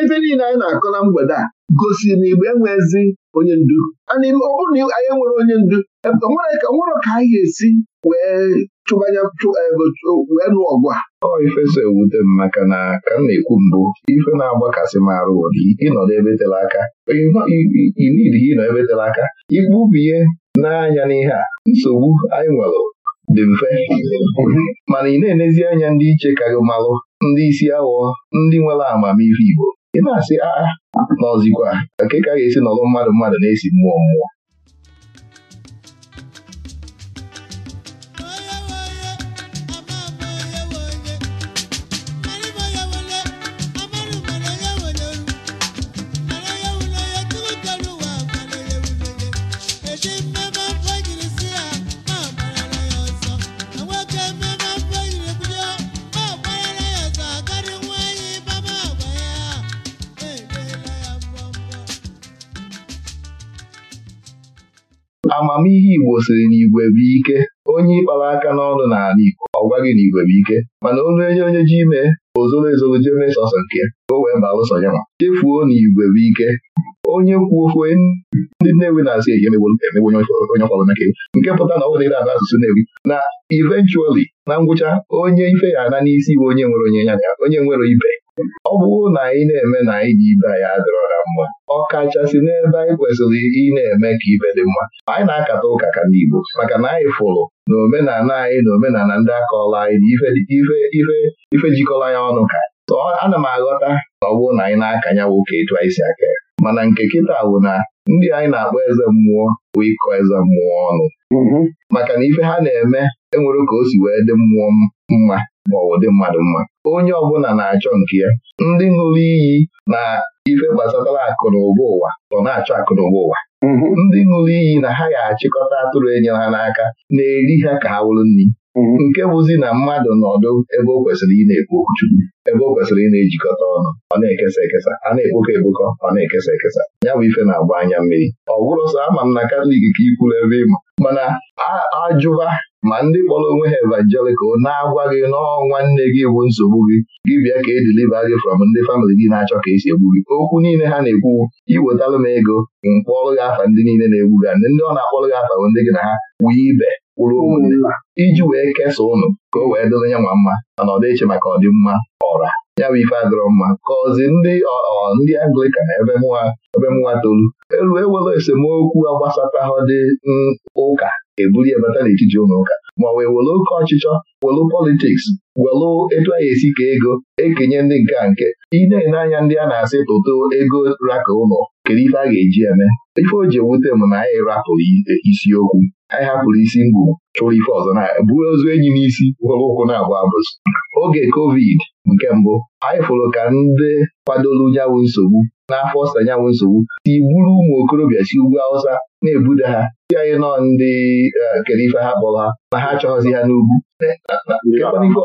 ife niile anyị na-akọ na mgbede a gosiri na Igbo enwezi onye ndu ọ bụrụ na anyị enwere onye ndu e, nwere ka anyị ga-esi wee chụbanye eh, wee nụ ọgụ a ọ ife so ewute m maka na ka m na-ekwu mbụ ife na-agbakasị m arụ ụdị ịnọdụ ebe tere aka inidi ịnọ ebe tere aka igbubie n'anya n'ihe a nsogbu anyị nwere dị mfe mana ị na-enezi anya ndị iche ka gị malụ ndị isi aghọ, ndị nwere amamife Igbo ị na-asị aa ah, ah, n'ọzikwa nke ka ga-esi nọrọ mmadụ mmadụ na-esi mmụọ mmụọ amamihe Igbo siri na igwe ike onye ịkpara aka n'ọnụ n'ala Igbo ọ gwaghị na igwe bụ ike mana onye onye onye ji ime ozoro ezoro jee mee sọsọ nke o wee baa ụsọ ya ma chefuo na igwe ike onye kwu ofe ndị Nnewi na-asị emegbo emegbo onye ọkwa bụ nke pụta na ọ bụla ịra ana asụsụ Nnewi na eventually na ngwụcha onye ife ya ana n'isi bụ onye nwere onye ya onye nwere ibe ọ bụrụ na anyị na-eme na anyị dị ibe anyị adịrọ ha mma ọ kachasị n'ebe anyị kwesịrị ị na-eme ka ibe dị mma anyị na-akata ụka ka ndị Igbo maka na anyị fụrụ na omenala anyị na omenala ndị akọọla anyị na ife ife jikọrọ ya ọnụ ka so ana m aghọta na ọ bụrụ na anyị na-aka ya nwoke etu anyị si aka ya mana nke kịta bụ na ndị anyị na-akpọ eze mmụọ bụ ịkọ eze mmụọ ọnụ mm-hmm. maka na ife ha na-eme enwere ka o si wee dị mmụọ mma ma ọ dị mmadụ mma onye ọbụla na-achọ nke ya ndị ṅụrụ iyi na ife gbasatara akụ na ụwa ọ na-achọ akụ na ụwa mm-hmm. ndị ṅụrụ iyi na ha ga-achịkọta atụrụ enyere ha n'aka na-eri ha ka ha wụrụ nri nke bụzi na mmadụ nọdụ ebe o kwesịrị ị na-ekwu okwuchukwu ebe o kwesịrị ị na-ejikọta ọnụ ọ na-ekesa ekesa a na-ekpokọ ekpokọ ọ na-ekesa ekesa ya bụ ife na-agba anya mmiri ọ bụrụ sọ ama m na katọlik ka ikwuru ebe ịma mana ajụba ma ndị kpọrọ onwe ha evangelikal na-agwa gị n'ọnwa nne gị bụ nsogbu gị gị bịa ka ediliva gị from ndị famịlị gị na-achọ ka esi egbu gị okwu niile ha na-ekwu iwetalụ m ego mkpọrọ gị afa ndị niile na-egbu gị ndị ọ na-akpọrọ gị afa bụ ndị gị na ha ibe kwuru ụmụnna iji wee kesaa ụnụ ka o wee dịrị ya nwa mma mana ọ dịche maka ọdịmma ọra ya bụ ife adịrọ mma kọzi ndị ndị Anglikan ebe mụwa ebe mụwa tolu elu ewere esemokwu agbasatahụ dị ụka ebuli ebata n'etiti ụlọ ụka ma wee welu oke ọchịchọ welu politiks welu etu anyị esi ka ego ekenye ndị nke nke ị na-ene anya ndị a na-asị tụtụ ego raka ụlọ kedu ife a ga-eji eme ife o ji ewute m na anyị rapụrụ e, isiokwu anyị hapụrụ isi mgbu chụrụ ife ọzọ na buo ozu enyi n'isi were ụkwụ na-abụ abụzụ oge kovid nke mbụ anyị fụrụ ka ndị kwadoro nyanwụ nsogbu n'afọ ọsa nyanwụ nsogbu si gburu ụmụ okorobịa si ugwu Hausa na-ebuda ha si anyị nọ ndị e, kere ife ha kpọrọ ha ma ha achọghịzi ha n'ugwu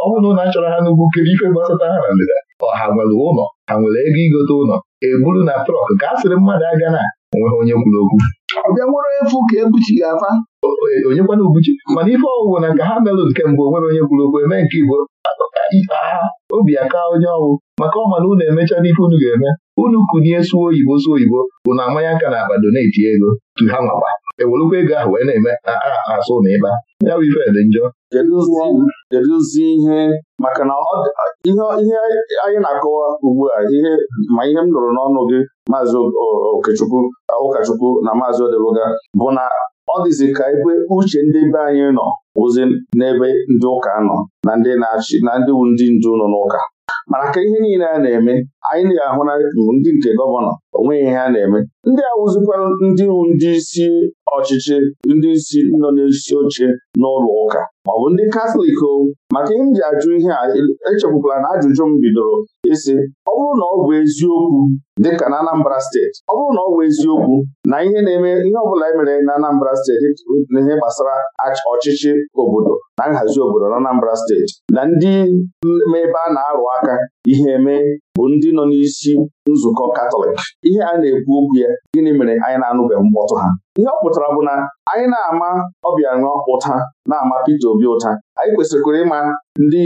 ọ bụrụ na achọrọ ha n'ugwu kere ife gbasata ha na ndịda Ọha nwere ụlọ ha nwere ego igote ụlọ eburu na trọk ka a sịrị mmadụ aga na enweghị onye kwuru okwu ọbịa nwere efu ka ebuchi gị afa e, onye kwana ubuchi mana ife ọwụwụ na nke ha merụ nke mbụ onwere onye kwuru okwu eme nke igbo agha obi aka onye ọwụ maka ọma na unu emechaa n'ife unu ga-eme unu kunie suo oyibo suo oyibo bụ na amanya aka na na doneti ego tu ha nwakwa ewelukwa ego ahụ wee na-eme asụ na ịba ya bụ ife dị njọ kedụzi ihe maka na ihe anyị na-akọwa ugbu a ihe ma ihe m nụrụ n'ọnụ gị maazị okechukwu ụkọchukwu na maazị odeluga bụ na ọ dịzi ka ebe uche ndị be anyị nọ ozi n'ebe ndị ụka nọ na ndị na-achị na ndị wu ndị ndu nọ n'ụka mana ka ihe niile a na-eme anyị na-ahụ na ndị nke gọvanọ onweghị ihe a na-eme ndị awụzikwa ndị wu ndị isi ọchịchị ndị isi nọ n'isi oche n'ụlọ ụka ma ọ bụ ndị katọlik o maka ihe m ji ajụ ihe a echekwukwala na ajụjụ m bidoro ịsị ọ bụrụ na ọ bụ eziokwu dịka na Anambra steeti ọ bụrụ na ọ bụ eziokwu na ihe na-eme ihe ọ bụla e mere na Anambra steeti na ihe gbasara ọchịchị obodo na nhazi obodo na Anambra steeti na ndị ebe a na-arụ aka ihe eme bụ ndị nọ n'isi nzukọ Katọlik ihe a na-ekwu okwu ya gịnị mere anyị na-anụbeghị mkpọtụ ha ihe ọ pụtara bụ na anyị na-ama Obianọ ụta na-ama pete Obi ụta anyị kwesịrịkwara ịma ndị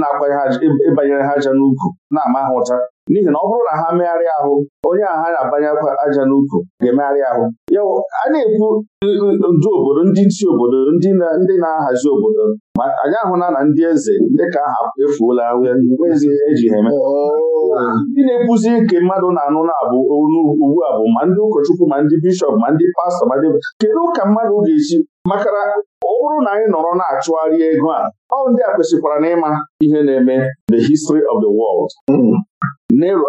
na-akwanye ha ịbanyere ha aja n'ukwu na-ama ha ụta n'ihi na ọ bụrụ na ha megharịa ahụ onye a ha na abanyekwa aja n'ukwu ga-emegharị ahụ ya a na-ekwu ndu obodo ndị isi obodo ndị na-ahazi obodo ma anyị ahụla na ndị eze ndị ka aha efuola nweghịzi eji ha eme ndị na-ekwuzi nke mmadụ na-anụ na-abụ ugbu a bụ ma ndị ụkọchukwu ma ndị bishọp ma ndị pastọ ma ndị kedu ka mmadụ ga-esi Makara na ọ bụrụ na anyị nọrọ na-achụgharị ego a ọ ndị a kwesịkwara na ịma ihe na-eme the history of the world hmm. Nero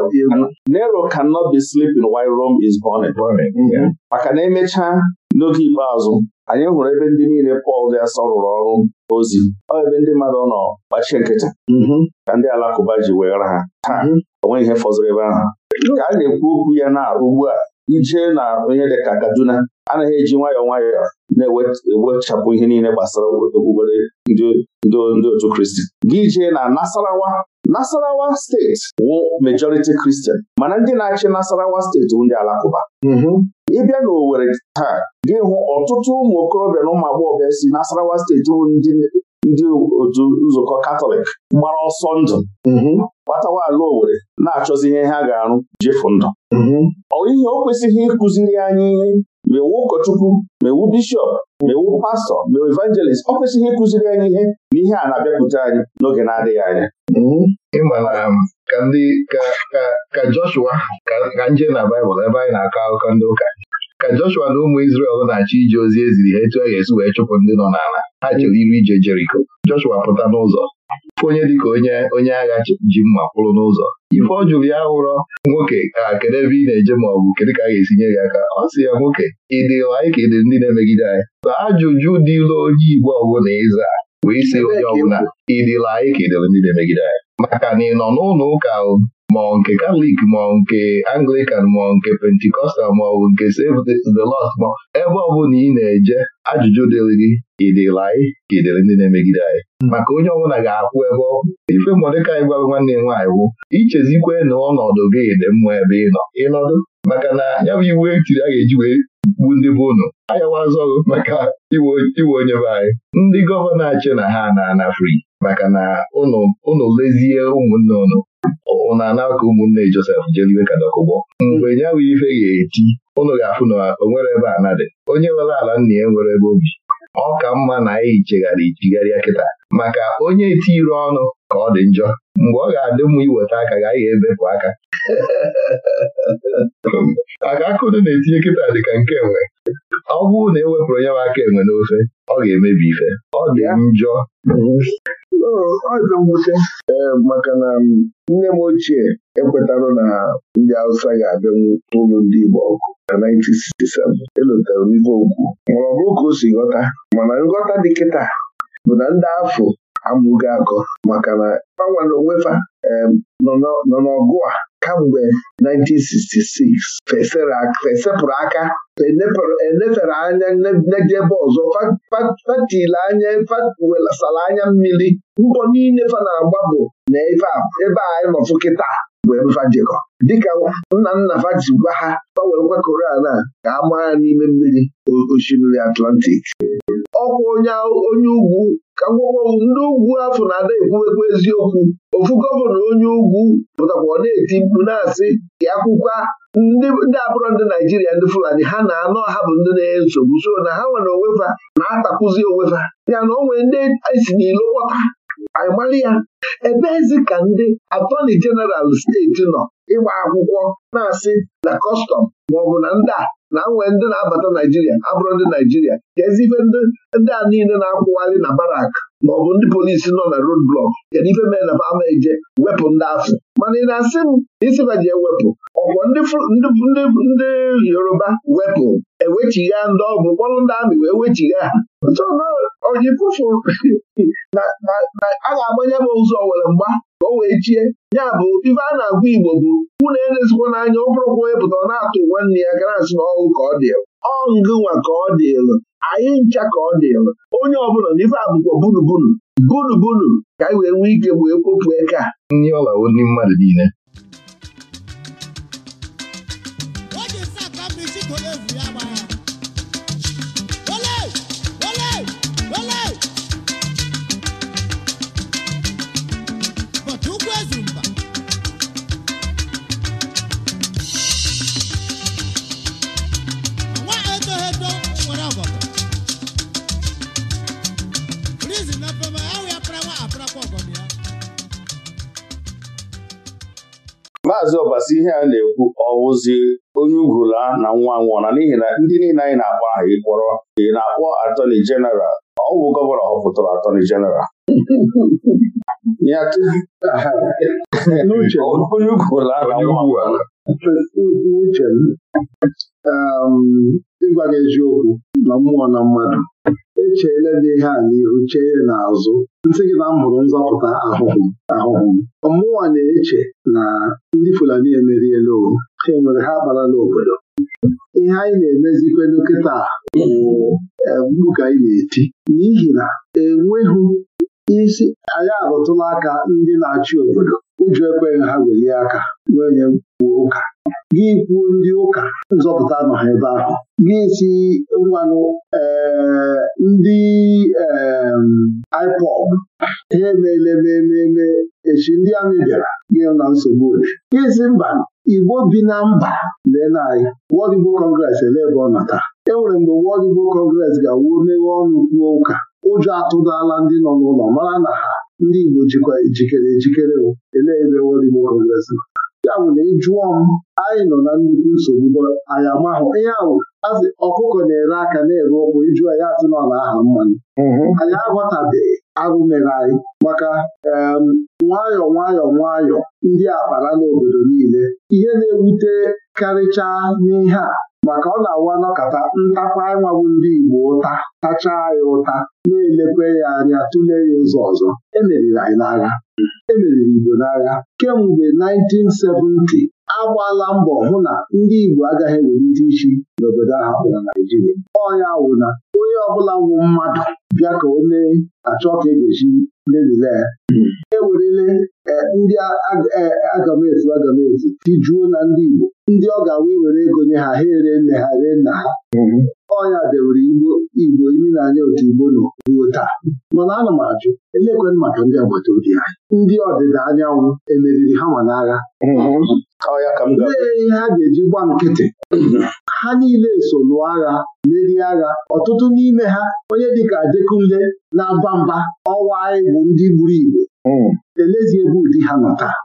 Nero cannot be sleeping while Rome is burning. Hmm. maka na emechaa n'oge ikpeazụ anyị hụrụ ebe ndị niile Pọl dị asọ rụrụ ọrụ ozi ọ ebe ndị mmadụ nọ gbachie nkịta. Mm-hmm. ka ndị alakụba ji weghara ha taa mm-hmm. o nweghị ihe fọziri ebe ahụ ka a na-ekwu okwu ya na ugbu a Ije na onye dị ka Kaduna anaghị eji nwayọọ nwayọọ na-ewechapụ ihe niile gbasara okpukpere ndị otu kristi gị jee na Nasarawa Nasarawa steeti wụ majority Kristian, mana ndị na-achị Nasarawa steeti bụ ndị Alakụba mm-hmm. ịbịa n'Owerri taa gị hụ ọtụtụ ụmụ okorobịa na ụmụ agbọghọ si Nasarawa steeti bụ ndị otu nzukọ Katọlik gbara ọsọ ndụ mm-hmm. gbatawa ala Owerri na-achọzi ihe ha ga-arụ jefu ndụ mm-hmm. ọ ihe o kwesịghị ịkụziri anyị ihe mewu ụkọchukwu mewu bishọp mewu pastọ mewu evangelist ọ kwesịghị ịkụziri anyị ihe na ihe a na-abịakwute anyị n'oge na-adịghị anya mhm. ịma na um, ka ndị ka Joshua ka nje na Baịbụl ebe anyị na-akọ akụkọ ndị ụka ka Joshua na ụmụ Izrel na-achọ ije ozi eziri ha etu a ga-esi wee chụpụ ndị nọ n'ala ha chere iri ije Jeriko Joshua pụta n'ụzọ onye dịka onye onye agha ji mma kwụrụ n'ụzọ ife ọjụrụ ya hụrọ nwoke a kedu ebe ị na-eje ma ọ bụ kedu ka a ga-esi nye gị aka ọ sị ya nwoke ị dị anyị ka ị dị ndị na-emegide anyị na ajụjụ dịla onye Igbo ọbụla ịza wee si onye ọbụla ịdịla anyị ka ị dịrị ndị na-emegide anyị maka na ị nọ n'ụlọ ụka ma ọ nke katọlik ma ọ nke Anglican ma ọ nke pentikọstal ma ọ bụ nke Save the Lost ma ebe ọ bụla ị na-eje ajụjụ dịrị gị ịdịrị anyị ka ịdịrị ndị na-emegide anyị maka onye ọbụla ga-akwụ ebe ọ ife Mọdekai gwara nwanne ya nwaanyị wụ ichezikwe na ọnọdụ gị dị mma ebe ị nọ ịnọdụ maka na ya bụ iwu etiri a ga-eji wee gbu ndị bụ ụnụ ayawazi ọgụ maka iwe onye be anyị ndị gọvanọ achị na ha na-ana fri maka na ụnụ lezie ụmụnne ụnụ ọ na-ana aka ụmụnne Josef jeliwe ka dọkụgbọ mgbe ya bụ ife ga-eti ụnụ ga-afụ na o nwere ebe a nadị onye nwere ala nna ya nwere ebe obi ọ ka mma na anyị chegharị ichigharịa kịta maka onye eti etiri ọnụ ka ọ dị njọ mgbe ọ ga-adị mma iweta aka ga anyị ebepụ aka maka akụdụ na-etinye kịta dị ka nke nwe? ọ bụrụ na e wepụrụ onye wa aka enwe n'ofe ọ ga-emebi ife ọ dị njọ Ọ mwute ee maka na nne m ochie ekwetara na ndị Hausa ga-abịanwu n'ụlọ ndị Igbo ọkụ na 1967 elotara m ife okwu ma ọ bụrụ ka o si ghọta mana nghọta dị kịta bụ na ndị afọ amụghị akọ maka na gbanwere onwefa nọ n'ọgụ a kamgbe 1966 fesepụrụ aka enefere anya nejebe ọzọ fatile anya fatwesara anya mmiri mbọ niile fa na-agba bụ na ebe a anyị kịta bụ jekọ dịka nna nna fa gwa ha gbanwee a na ka a n'ime mmiri osimiri Atlantik ọkwa onye onye ugwu ka ngwakọụ ndị ugwu afọ na-ada ekwuwekwu eziokwu ofu gọvanọ onye ugwu pụtakwa ọ na-eti mkpu na-asị akwụkwọ ndị abụrọ ndị Naijiria ndị Fulani ha na-anọ ha bụ ndị na-enye nsogbu so na ha nwere onwefa na-atakụzi onwefa ya na onwe nwere ndị esi n'ilo kpọta anyị mara ya ebeezi ka ndị atọni jeneral steeti nọ ịgba akwụkwọ na-asị na kọstọm maọbụ na ndị a na nwee ndị na-abata Naijiria abụrụ ndị Naijiria kedu ife ndị a niile na-akwụgharị na barak maọbụ ndị polisi nọ na road blọk kedu ife mere na ama eje wepụ ndị afọ mana ị na-asị m isi isibaji ewepụ ọkwọ ndị Yoruba wepụ ewechigha ndị ọgwụ mkpọrụ ndị amị wee wechigha ha ọji pụfụ na a ga-agbanye m ụzọ were mgba o wee chie ya bụ ife a na-agwa Igbo bụ unu elezikwa n'anya ọ bụrụkwa onye pụtara na-atụ nwanne ya gara asị na ka ọ dịlụ ọngụnwa ka ọ dịlụ anyị ncha ka ọ dịlụ onye ọbụla na ife abụkwa bunubunu bunubunu ka anyị wee nwee ike wee kpopụ eke a ndị mmadụ niile ikpeazụ ọbasi ihe a na-ekwu ọwụzi onye ugwula na nwa nwụọna n'ihi na ndị niile anyị na-akpọ aha ịkpọrọ ị na-akpọ atọni jeneral ọ bụ gọvanọ họpụtara atọni jeneral onye ugwula na nwa ịgwa gị eziokwu na mmụọ na mmadụ echeela dị ihe a n'ihu chee n'azụ nsị gị na m hụrụ nzọpụta ahụhụ ahụhụ mmụọ na-eche na ndị Fulani emeriela o ha enwere ha abarala obodo ihe anyị na emezikwa nkịta bụ mgbu eh, ka anyị na-eti n'ihi na enweghị isi anyị arụtụla aka ndị na-achị obodo ụjọ ekweghị ha welie aka n'onye kwuo ụka gị kwuo ndị ụka nzọpụta nọ ha ebe ahụ gị si mmanụ eh, ndị eh, ipod ha emeela echi ndị amị bịara gị na nsogbu gị si mba Igbo bi na mba leen anyị World Igbo Congress ele ebe ọ nọ taa. e nwere mgbe World Igbo Congress ga-awuo meghe ọnụ kwuo ụka ụjọ atụdala ndị nọ n'ụlọ mara na ha ndị Igbo jikwa ejikere ejikere elee ebe Igbo kọngres ya bụ na ị m anyị nọ na nnukwu nsogbu anyị amahụ ihe ahụ azị ọkụkọ na-ere aka na-ere ụkwụ ịjụọ ya asị nọ na aha mmanụ mhm. anyị aghọtabeghị arụ mere anyị maka nwayọọ nwayọọ nwayọọ ndị akpara n'obodo niile ihe na-ewute karịchaa n'ihe a maka ọ na-awa n'ọkata ntakwa ịnwagwụ ndị Igbo ụta tachaa ya ụta na elekweghị anya tụlee ya ụzọ ọzọ emeriri anyị n'agha emeriri Igbo n'agha kemgbe 1970 agbala mbọ hụ na ndị Igbo agaghị ewelite isi n'obodo ahụ na Naijiria ọnya wụ na onye ọbụla nwụ mmadụ bịa ka o mee achọ ka e ga lelile ya hmm. ewerele e, ndị agamefu agamefu tijuo na ndị Igbo ndị ọ ga-awa ewere ego nye ha ha ere nne ha ree nna ha hmm. ọnya dewere igbo igbo iri na anya otu igbo nọ ruo taa mana ana m ajụ elekwen maka ndị agbata obi ha ndị ọdịda anyanwụ emeriri ha n'agha mm-hmm. oh, Ee, ha ga-eji gba nkịtị ha niile so lụọ agha merie agha ọtụtụ n'ime ha onye dịka Adekunle na-aba mba ọwa anyị bụ ndị gburu igbo mm. elezie ebe ụdị ha nọ taa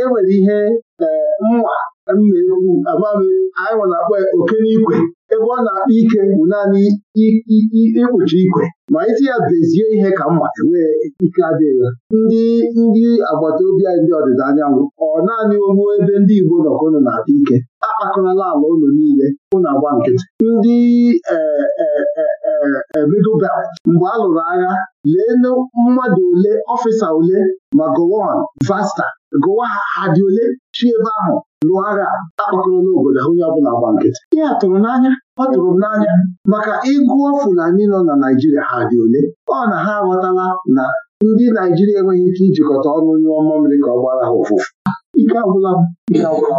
enwere e ihe eh, mma amami anyị nwa na-akpọ ya oke n'ikwe ebe ọ na-akpọ ike bụ naanị ikpuchi ikwe ma isi ya bezie ihe ka mma enwee ike adịghị ya ndị ndị agbata obi anyị ndị ọdịda anyanwụ ọ naanị ogbu ebe ndị Igbo nọkọnụ na-akpa ike akpakọrọla ala ụlọ niile ụnụ agba nkịtị ndị e, e, e, middle belt mgbe a lụrụ agha lee mmadụ ole ọfịsa ole ma Vasta gụwa ha ha dị ole chi ebe ahụ lụọ agha obodo ha onye ọbụla gba nkịtị ihe a tụrụ n'anya ọ tụrụ m n'anya maka ịgụọ Fulani nọ na Naijiria ha dị ole ọ na ha aghọtala na ndị Naijiria enweghị ike ijikọta ọnụ onye ọma mmiri ka ọ gbara ha ụfụfụ ike agwụla ike agwụla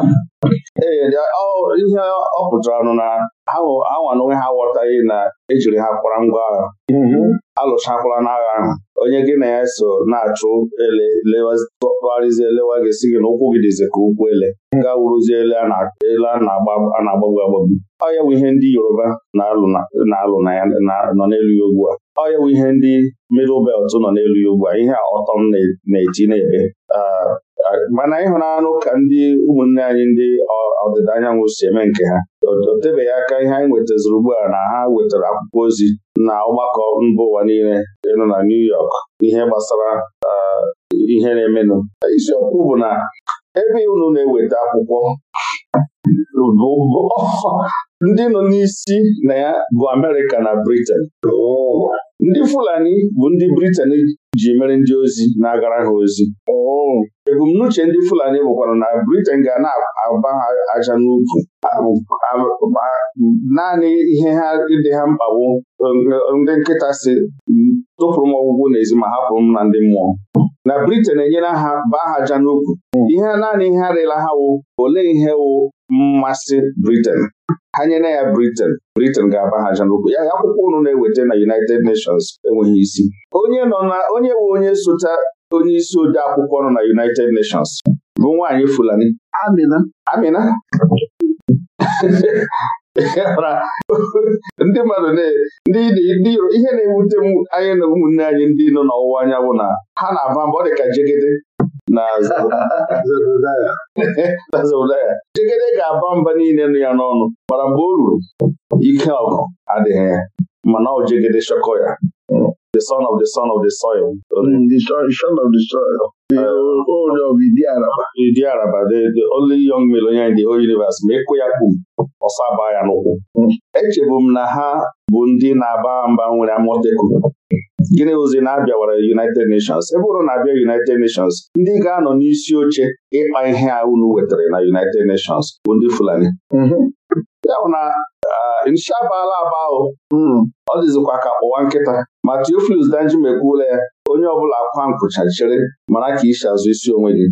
ee ihe ọ pụtara nụ na anwa onwe ha aghọtaghị na ejiri ha kwara ngwa agha mm-hmm. alụchakwala n'agha ahụ onye gị na ya so na-achụ ele tụgharịzie lewa gị si gị na ụkwụ gị dịzi ka ụkwụ ele mm-hmm. ga wuruzie ele a na-agbagbu agbagbu ọ ya bụ ihe ndị Yoruba na-alụ nọ n'elu ya ugbu a ọ ya bụ ihe ndị middle belt nọ n'elu ya ugbu a ihe ọtọ m na-eti na-ebe mana ịhụnanụ ka ndị ụmụnne anyị ndị ọdịda anyanwụ si eme nke ha o tebeghị aka ihe anyị nwetaziri ugbu na ha wetara akwụkwọ ozi na ọgbakọ mba ụwa niile ịnụ na New York ihe gbasara ihe na-emenụ isiokwu bụ na ebe unu na-eweta akwụkwọ ndị nọ n'isi na ya bụ Amerịka na Briten ndị Fulani bụ ndị Briten ji mere ndị ozi na-agara ha ozi ebumnuche ndị Fulani bụkwara na Briten ga na-agba ha aja n'ukwu naanị ihe ha dị ha mkpagbu um, ndị nkịta si tụpụrụ m ọgwụgwụ n'ezi ma hapụrụ m na ndị mmụọ na Britain enyela ha baa ha n'ukwu hmm. ihe naanị ihe arịla ha wụ olee ihe wụ mmasị Britain ha nyere ya Britain Britain ga-aba ha n'okwu ya akwụkwọ ụnụ na-eweta na United Nations enweghị isi onye nọ na onye wụ onye sote onye isi ode akwụkwọ nọ na United Nations bụ nwaanyị Fulani Amina ndị mmadụ ndị ihe na-ewute anyị na ụmụnne anyị ndị nọ n'ọwụwa anya bụ na ha na-aba mba ọ dị ka jegede na zodaya jegede ga-aba mba niile nụ ya n'ọnụ mara mgbe o ruru ike ọgụ adịghị ya mana ọ jegede shọkọ ya the son of the son of the soil. Mm, the son of the soil. The uh, old of Idi Araba. Idi Araba, the, the only young male in the whole universe. Ma ekwe ya kpum ọsaba ya n'ụkwụ echebu m na ha bụ ndị na-aba mba nwere amoteku gịnị ozi na-abịawara United Nations ebe ụrụ na-abịa United Nations ndị ga-anọ n'isi oche ịkpa ihe a unu wetara na United Nations bụ ndị Fulani mhm. ya bụ na nshabala mhm. ọ dịzikwa ka kpụwa nkịta ma Theophilus Danjuma ekwuola ya onye ọbụla akwa nkwụchachere mara ka isi azụ isi onwe gị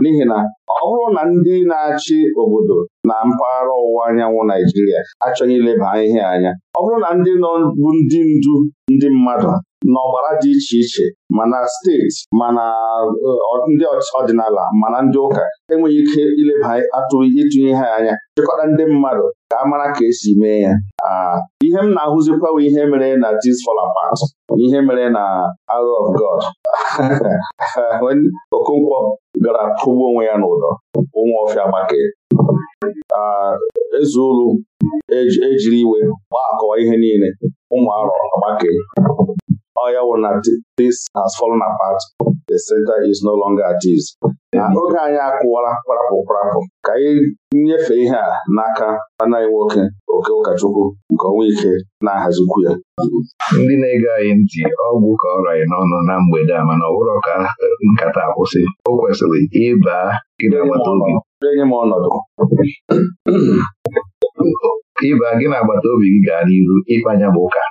n'ihi na ọ bụrụ na ndị na-achị obodo na mpaghara ọwụwa anyanwụ Naijiria achọghị ileba ihe anya ọ bụrụ na ndị nọ bụ ndị ndu ndị mmadụ n'ọgbara dị iche iche mana steeti mana eh, ndị ọdịnala mana ndị ụka enweghị ike ileba atụghị ịtụnye ha anya chịkọta ndị mmadụ ka a mara ka esi mee ya ah, ihe m na-ahụzikwawa ihe mere na this fall apart ihe mere na Arrow of God Okonkwo gara tụgbu onwe ya n'ụdọ ụmụ ọfịa gbake ah, ezeulu ejiri e iwe gbaa akọwa ihe niile ụmụ arọ agbake Ọ ya wụ na this has fallen apart. The center is no longer at ease. na oge anyị akwụwara kparapụ kparapụ ka anyị nyefe ihe a n'aka anaghị nwoke oke ụkọchukwu nke ọnwa ike na-ahazikwu ya ndị na-ege anyị ntị ọgwụ ka ọ ranye n'ọnụ na mgbede a mana ọ bụrụ ka nkata akwụsị o kwesịrị ịba gị agbata obi enye m ọnọdụ ịba gị na agbata obi gị gaa n'iru ịkpanya bụ ụka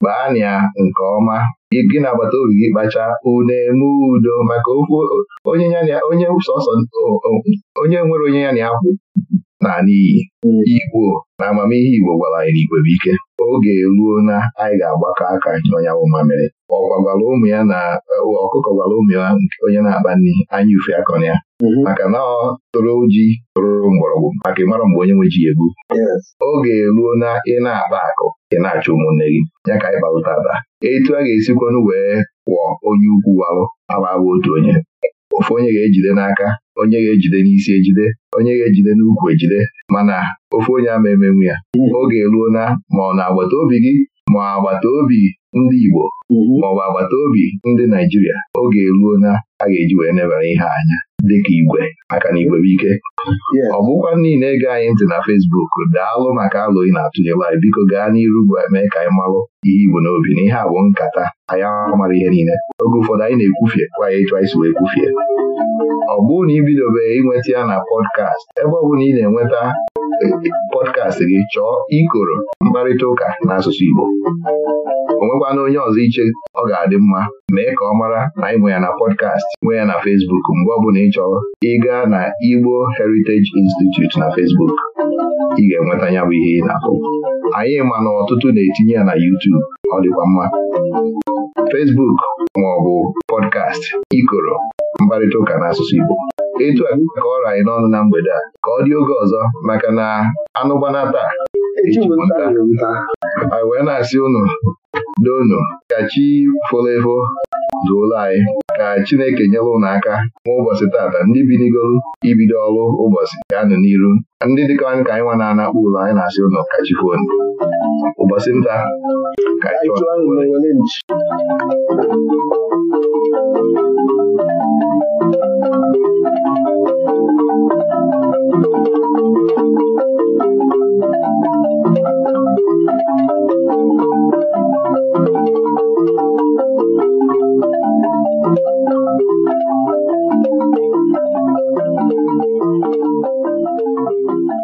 kpaanị nke ọma gị na agbata obi gị kpacha une eme udo maka okwu onye sọsọ onye nwere onye ya na na n'iyi Igbo na amamihe Igbo gwara anyị n'igwe bụ ike oge eruo na anyị ga-agbakọ aka ọnyawụ mamịrị ọkwa gwara ụmụ ya na e, ọkụkọ gwara ụmụ ya onye na-akpa nri anya ufe akọrọ ya mm-hmm. maka na ọ toro ji mgbọrọgwụ maka ịmara mgbe onye nwe ji egbu oge eruo na ị na-akpa akụ ị na-achọ ụmụnne gị ya ka anyị kparụta ada etu a ga-esikwanụ wee kwụọ onye ukwu walụ agbabụ otu onye Ofe onye ga-ejide n'aka onye ga-ejide n'isi ejide onye ga-ejide n'ukwu ejide mana ofe onye ama emenwu ya oge eruo na ma ọ na-agbata obi gị ma agbata obi ndị Igbo mhm. maọbụ agbata obi ndị Naijiria oge eruo na a ga-eji wee nebara ihe anya dịka igwe aka na igwe bụ ike ọ bụkwa niile anyị ntị na Fesbuk daalụ maka alụ ị na-atụnye live biko gaa n'iru mee ka anyị malụ ihe igbo n'obi na ihe a bụ nkata anyị mara ihe niile oge ụfọdụ anyị na-ekwufie kwa ya ịchọ isi wee kwufie ọ bụrụ na ibidobe ịnweta ya na pọdkast ebe ọ bụla ị na-enweta eh, eh, pọdkast gị chọọ ikoro mkparịta ụka n'asụsụ Igbo o nwekwana onye ọzọ iche ọ ga-adị mma mee ka ọ mara na ịbụ ya na pọdkast nwee ya na fesbuk mgbe ọbụla ị chọrọ ịga na Igbo Heritage Institute na fesbuk ị ga-enweta ya bụ ihe ị na-akụ anyị ma na ọtụtụ na-etinye ya na YouTube ọ dịkwa mma fesbuk maọbụ pọdkast ikoro mkparịta ụka n'asụsụ Igbo Ịtụ a ka ọ anyị n'ọnụ na mgbede a ka ọ dị oge ọzọ maka na anụgbana taa nta. anyị wee na-asị unu doonu ka chi folo efo duola anyị ka Chineke nyere unu aka nwa ụbọchị tata ndị binigolu ibido ọrụ ụbọchị ga-anụ n'iru ndị dịka anyị ka anyị nwa na-anakpụ ụlọ anyị na-asị ụnụ ka chi fonu ụbọchị nta ka chi ee eeeaadea aneụaa n